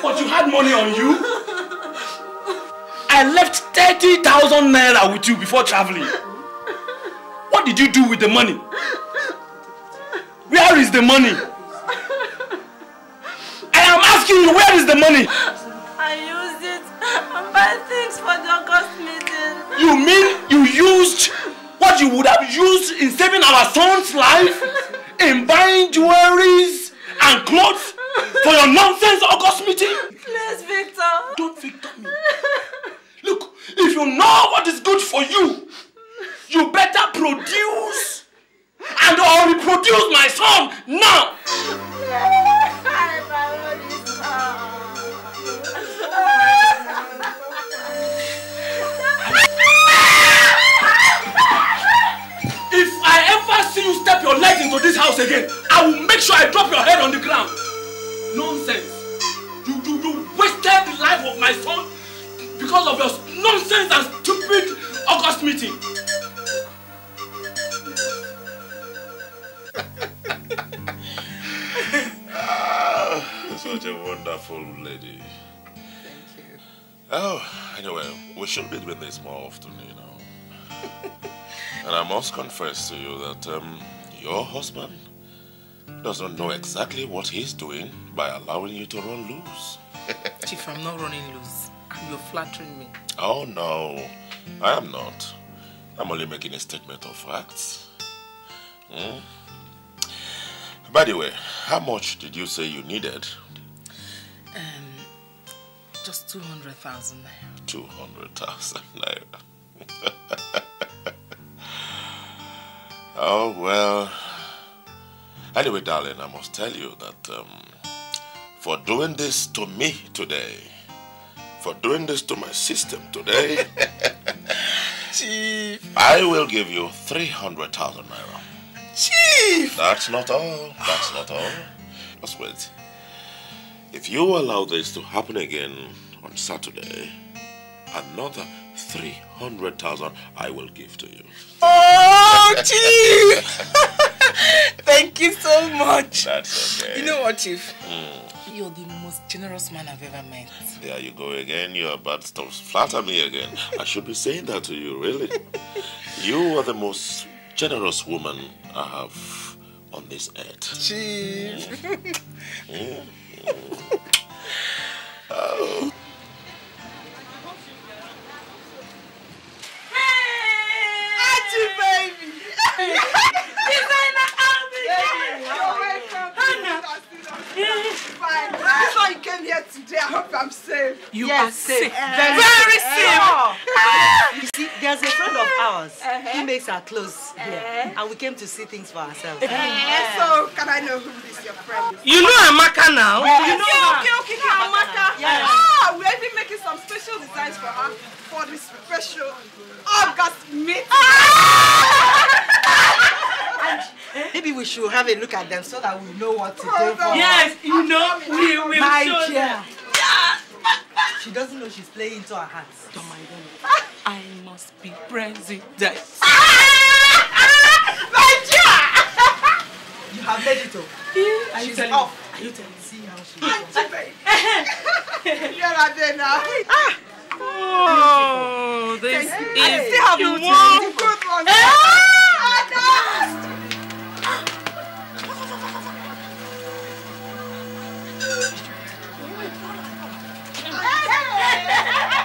But you had money on you? I left 30,000 naira with you before traveling. What did you do with the money? Where is the money? I am asking you, where is the money? and buy things for the August meeting. You mean you used what you would have used in saving our son's life? (laughs) in buying jewelries and clothes for your nonsense August meeting? Please, Victor. Don't Victor me. Look, if you know what is good for you, you better produce and or reproduce my son now. (laughs) you step your leg into this house again, I will make sure I drop your head on the ground. Nonsense. You, you, you wasted the life of my son because of your nonsense and stupid August meeting. (laughs) such a wonderful lady. Thank you. Oh, anyway, we should meet with this more often, you know. (laughs) And I must confess to you that um, your husband does not know exactly what he's doing by allowing you to run loose. (laughs) Chief, I'm not running loose. You're flattering me. Oh, no. I am not. I'm only making a statement of facts. Mm. By the way, how much did you say you needed? Um, just 200,000 naira. 200,000 naira. (laughs) Oh, well. Anyway, darling, I must tell you that um, for doing this to me today, for doing this to my system today, (laughs) Chief. I will give you 300,000 naira. Chief! That's not all. That's not all. Just wait. If you allow this to happen again on Saturday, another 300,000 I will give to you. Oh, Chief! (laughs) Thank you so much. That's okay. You know what, Chief? Mm. You're the most generous man I've ever met. There you go again. You're about to flatter me again. I should be saying that to you, really. You are the most generous woman I have on this earth. Chief. Mm. Mm. (laughs) Oh. You yes, are safe. Uh, very, very eh, safe. Uh, uh, you see, there's a friend of ours. -huh. He makes our clothes here. -huh. And we came to see things for ourselves. -huh. So, can I know who is your friend You know Amaka now? Yes. You know okay, okay, okay, okay, Amaka. Yes. Ah, we're even making some special designs for her for this special August meeting. Ah! And maybe we should have a look at them so that we know what to do for Yes, you know, we will My show dear. them. She doesn't know she's playing into her hands. Don't oh mind them. I must be president. (laughs) My dear! You have made it up. Oh. you she's off. Are you telling me? See how she is. (laughs) You're not there now. Ah! Oh, this hey, is hey, you one. Good one. Ah!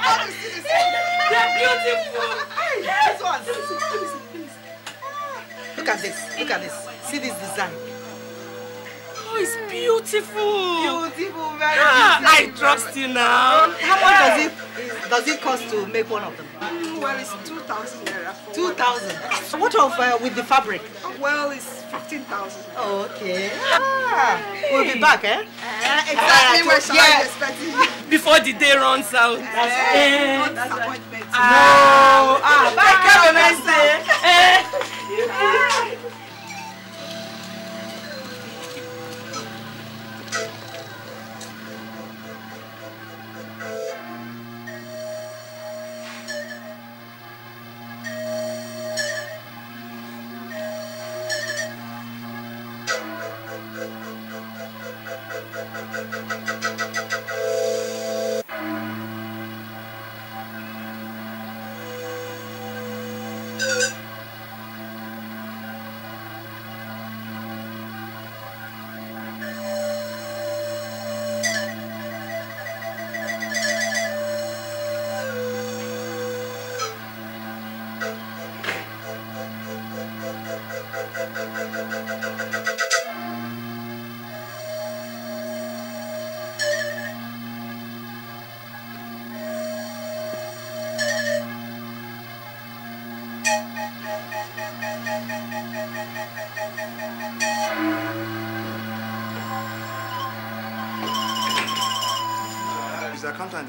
They're beautiful. Hey, this Look at this. Look at this. See this design. Oh, it's beautiful. Beautiful, very beautiful. I trust you now. How much does it does it cost to make one of them? Mm, well, it's 2,000 naira. 2,000. What of uh, with the fabric? Well, it's 15,000. Oh, okay. Ah, We'll be back, eh? Uh, exactly uh, where so yeah. expecting (laughs) Before the day runs out. That's uh, eh. That's Uh, no. Ah, bye, have Bye. nice day.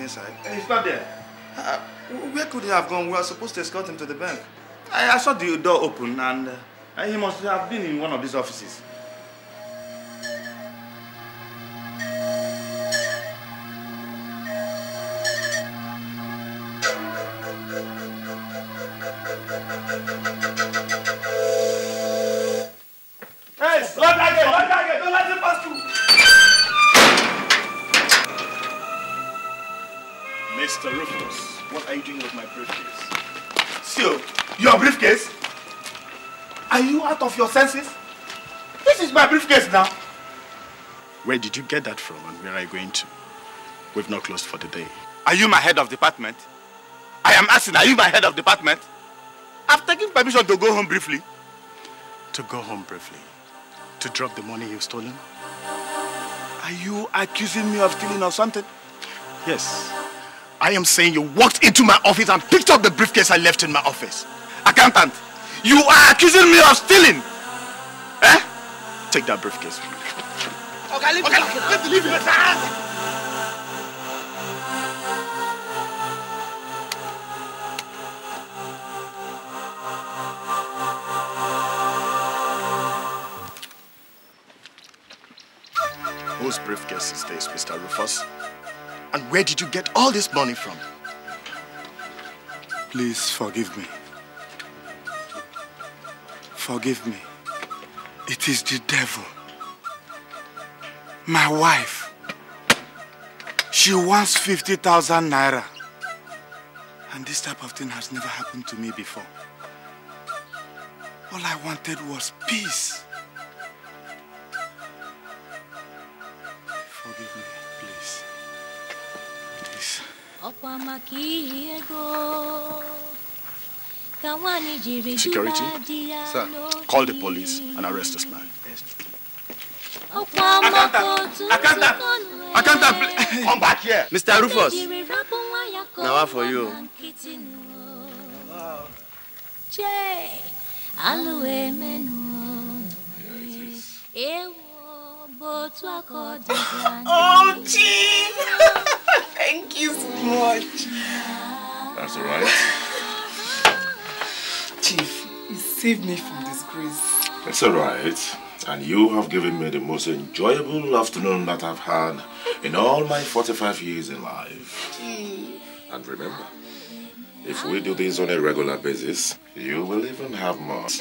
inside. And he's not there. Uh, where could he have gone? We were supposed to escort him to the bank. I, I saw the door open and, uh, and he must have been in one of these offices. your senses? This is my briefcase now. Where did you get that from and where are you going to? We've not closed for the day. Are you my head of department? I am asking, are you my head of department? I've taken permission to go home briefly. To go home briefly? To drop the money you've stolen? Are you accusing me of stealing or something? Yes. I am saying you walked into my office and picked up the briefcase I left in my office. Accountant, you are accusing me of stealing! Take that briefcase. Okay, leave okay, it. Let's leave it. Whose briefcase is this, Mr. Rufus? And where did you get all this money from? Please forgive me. Forgive me. It is the devil. My wife. She wants 50,000 naira. And this type of thing has never happened to me before. All I wanted was peace. Forgive me, please. Please. Security, sir, call the police and arrest this man. Akanta, Akanta, Akanta, come back here. Mr. Rufus, now what for you. Oh, gee! (laughs) Thank you so much. That's all right save me from disgrace. It's alright. And you have given me the most enjoyable afternoon that I've had in all my 45 years in life. Hmm. And remember, if we do this on a regular basis, you will even have more. (laughs)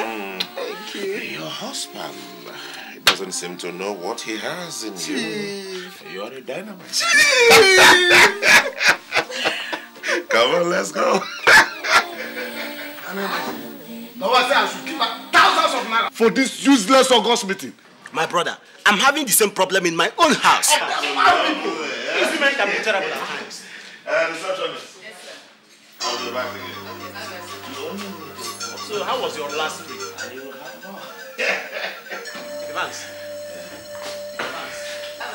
Hmm. Thank you. Your husband doesn't seem to know what he has in Chief. you. You're a dynamite. (laughs) Come on, let's go for this useless August meeting. My brother, I'm having the same problem in my own house. Eh, These women eh, can be at times. Uh, yes, sir. I'll be back again. So, how was your last week? (laughs) Advance. did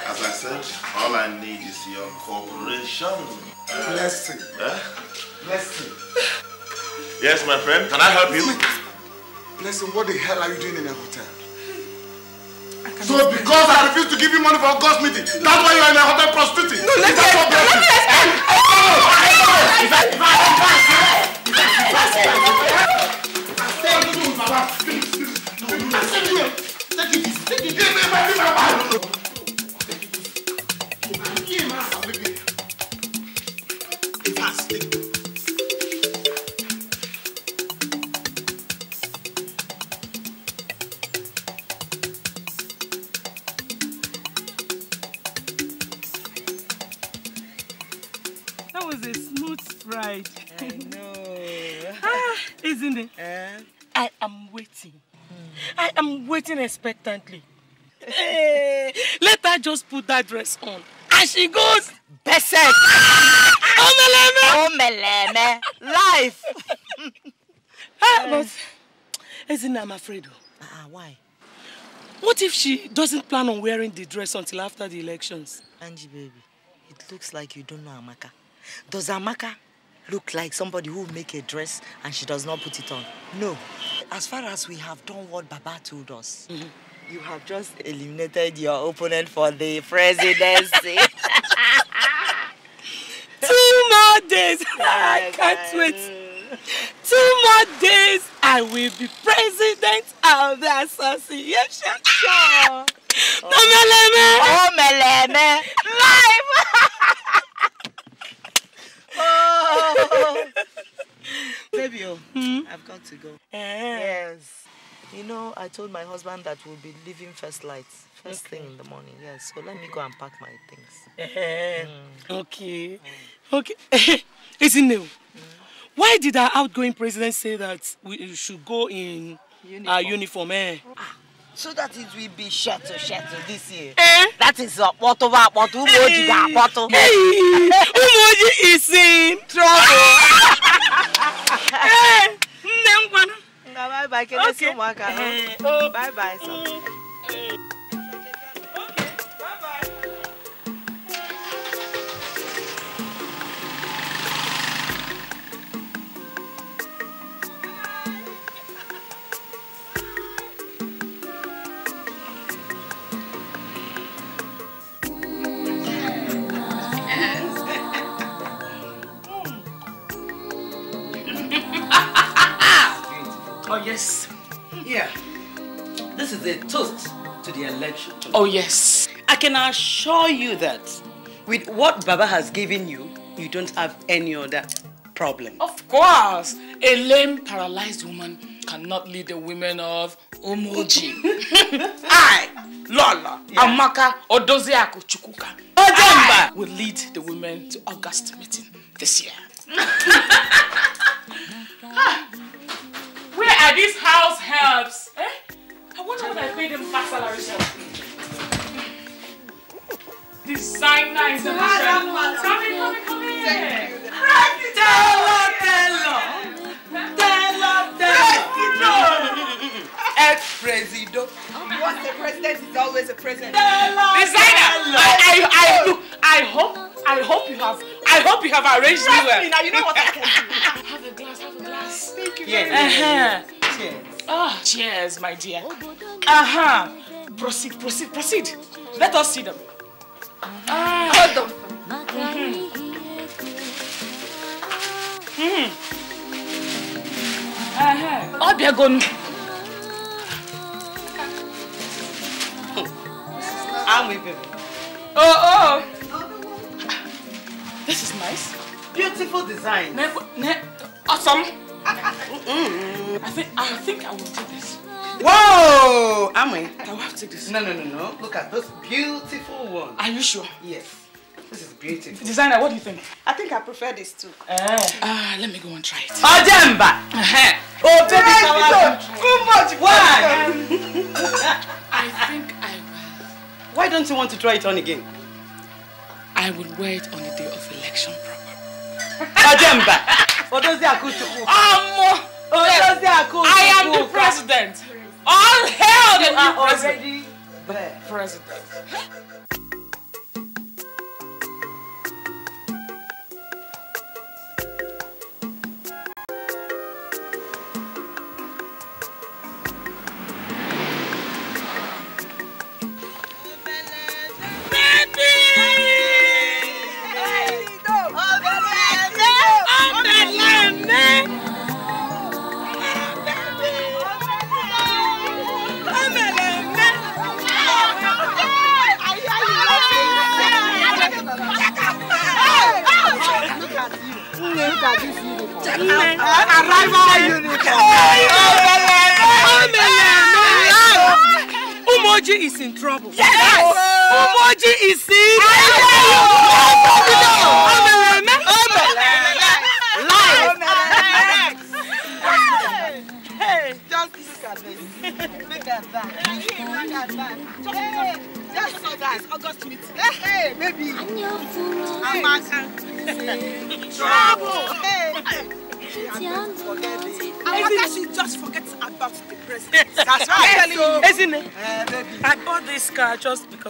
As I said, all I need is your cooperation. Blessing. Huh? Eh? Blessing. Yes, my friend. Can I help you? Blessing, what the hell are you doing in a hotel? So because I refuse to give you money for a ghost meeting, that's why you're in a hotel prostituting. No, let me explain. Let me explain. Take it. isn't it? Eh? I am waiting. Mm. I am waiting expectantly. hey, eh, let her just put that dress on. And she goes, Besek! Omeleme! Omeleme! Life! Hey, (laughs) ah, but, isn't I'm afraid. Uh, uh, why? What if she doesn't plan on wearing the dress until after the elections? Angie, baby, it looks like you don't know Amaka. Does Amaka look like somebody who make a dress and she does not put it on. No. As far as we have done what Baba told us, mm -hmm. you have just eliminated your opponent for the presidency. (laughs) Two more days. (laughs) Yes, I can't I wait. Two more days. I will be president of the association. Sure. Oh. (laughs) No, Meleme. Oh, Meleme. Live! Oh. (laughs) Baby, oh, hmm? I've got to go. Yes. You know, I told my husband that we'll be leaving first light, first okay. thing in the morning. Yes, so let me go and pack my things. mm. Okay. Mm. Okay. (laughs) Is it? new? Hmm. Why did our outgoing president say that we should go in uniform. our uniform? Eh? Ah so that it will be shuttle shuttle this year. Eh? That is akpọtụ bụ akpọtụ ụmụ ojii ga-akpọtụ. Ụmụ ojii is in trouble. (laughs) Eh. Nne m gwana. Nna eh. bye bye, kenesi ụmụaka. Eh. Bye bye. Oh, yes. I can assure you that with what Baba has given you, you don't have any other problem. Of course. A lame, paralyzed woman cannot lead the women of Umoji. I, (laughs) Lola, yeah. Amaka, Odoziaku, Chukuka, Ojamba will lead the women to August meeting this year. (laughs) (laughs) Where are these house helps? Eh? I wonder what I paid him back salary for. Designer is the best. Come in, come in, come in. Thank you. Telo, Telo. Telo, Telo. Ex-president. Once a president is always a president. Designer, I, I, I, look, I hope, I hope you have, I hope you have arranged me well. Now you know what I can do. have a glass, have a glass. Thank you very much. Uh-huh. Cheers. Oh, ah, cheers, my dear. Uh-huh. Proceed, proceed, proceed. Let us see them. Ah. Hold them. Mm -hmm. Mm -hmm. Uh-huh. Oh, they're gone. I'm with you. Oh, oh. This is nice. Beautiful design. Ne ne awesome. I think I think I will take this. Whoa! Amoy. I will have to take this. No, no, no, no. Look at this beautiful one. Are you sure? Yes. This is beautiful. Designer, what do you think? I think I prefer this too. Eh. Ah, uh, let me go and try it. Ojemba! oh, baby, yes, too much. Why? I think I will. Why don't you want to try it on again? I will wear it on the day of election proper. Odoziaku Chukwu. Ọmọ. Oh, Odoziaku Chukwu. I am the president. All hail the new president. already the president.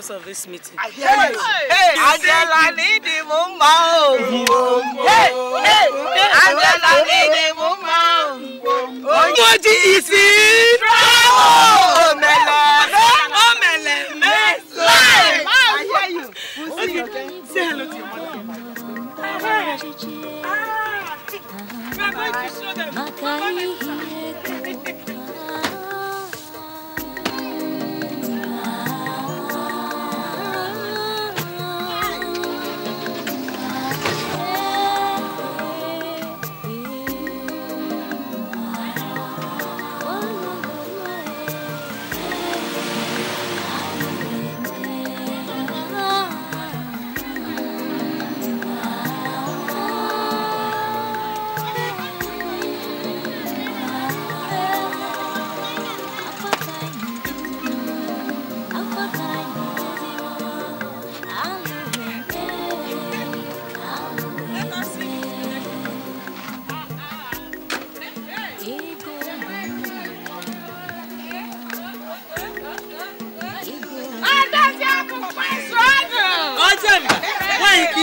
purpose of this meeting?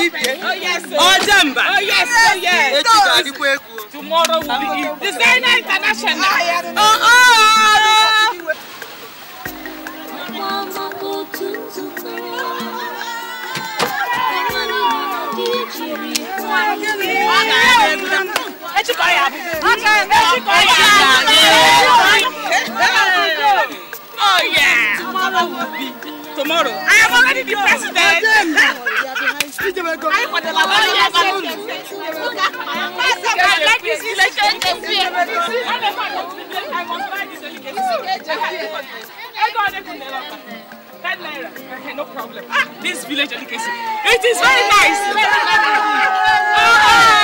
Ife. Oh yes. Ojemba. Oh yes. Oh yes. Tomorrow will be Ife. Designer International. Oh oh. Oh yeah. Tomorrow will be tomorrow. I am already the president. I am the lawyer. No problem. Ah, this village delicacy. It is very nice. Oh, oh.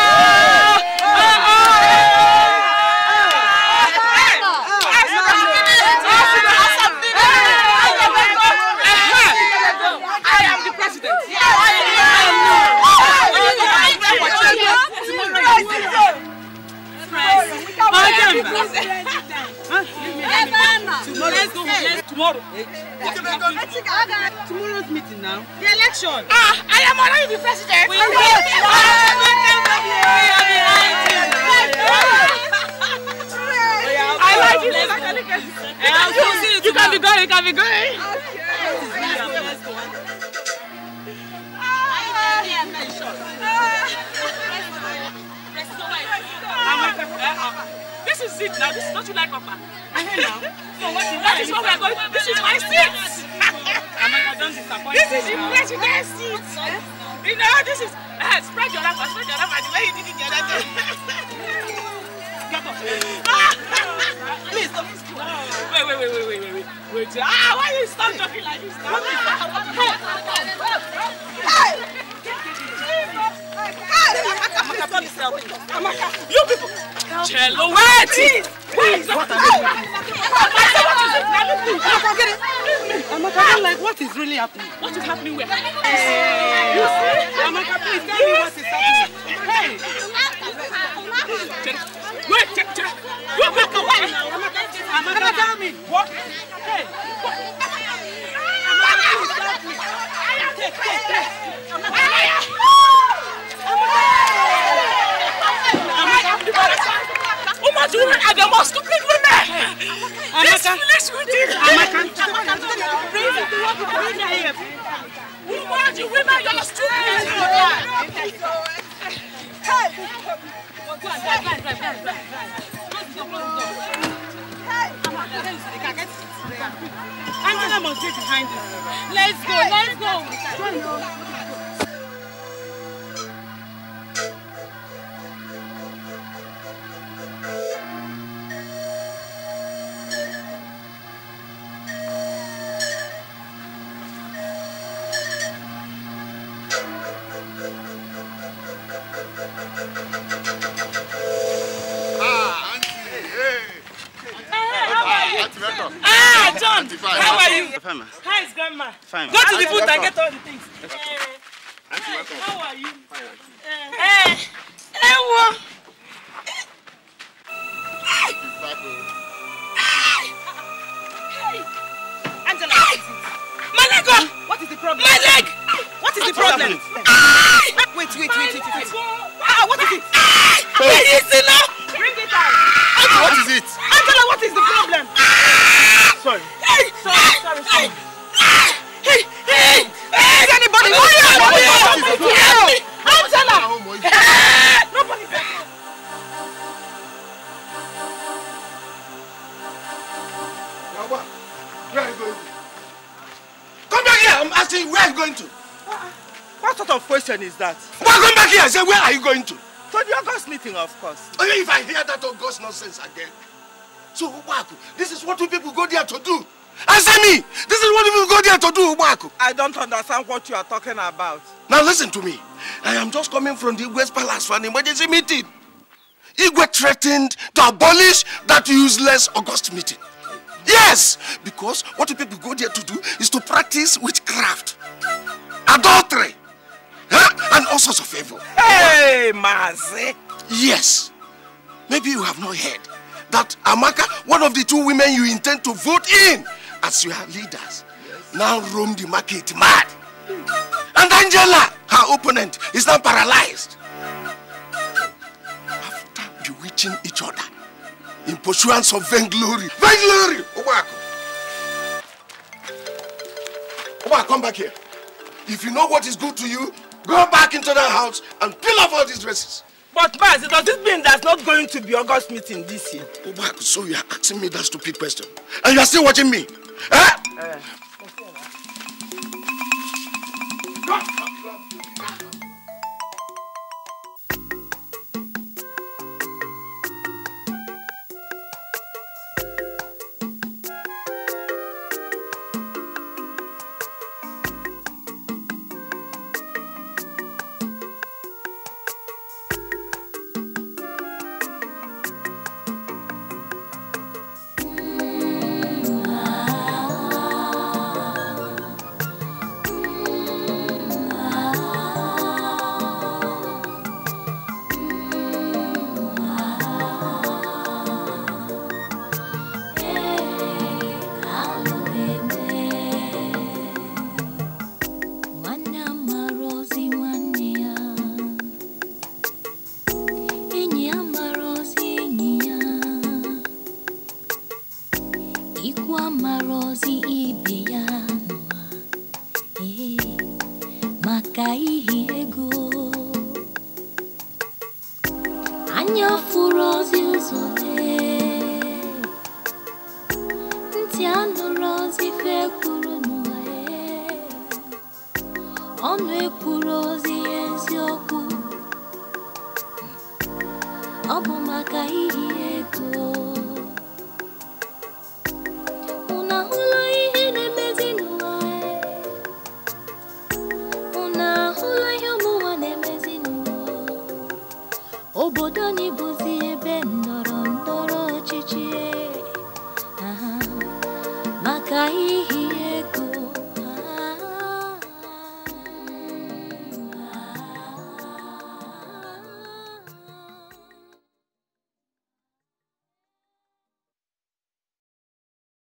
Tomorrow. Tomorrow's meeting now. The election. Ah, I am already the president. We are are We will be I like it. You, you can be going. You can be going. Okay. Let's go. This is it now. This is what you like Papa? that is what we are going This is my seat. this is your president's seat. You know, this is. Uh, spread your lap, spread your lap, and the way you did it the other day. (laughs) Get off. Please stop. Wait, wait, wait, wait, wait, wait, wait. Ah, why you stop talking like this? Stop. You people! Cello, wait! Please! Please! What are you doing? Amaka, get I'm like, what is really happening? What is happening where? Hey. You see? Amaka, please tell me what is happening. Hey! Wait, check, check. You make a way. I'm gonna tell me. What? Hey. Woman to woman are the most stupid women. This village will do. Woman to women, you're stupid. Let's go, let's go. Fine, ma. Hi, grandma. Fine. Go to the booth and get all the things. of course. Oh, if I hear that August oh, nonsense again. So, Ubaku, this is what you people go there to do. Answer me! This is what you people go there to do, Ubaku. I don't understand what you are talking about. Now listen to me. I am just coming from the Igwe's palace for an emergency meeting. Igwe threatened to abolish that useless August meeting. Yes, because what you people go there to do is to practice witchcraft, adultery, huh? and all sorts of evil. Hey, Mazi! Yes. Maybe you have not heard that Amaka, one of the two women you intend to vote in as your leaders, yes. now roam the market mad. And Angela, her opponent, is now paralyzed. After bewitching each other in pursuance of vainglory. Vainglory! Obako. Obako, come back here. If you know what is good to you, go back into that house and peel off all these dresses. But Baz, does this mean that's not going to be August meeting this year? Oh, so you are asking me that stupid question. And you are still watching me? Eh? Uh.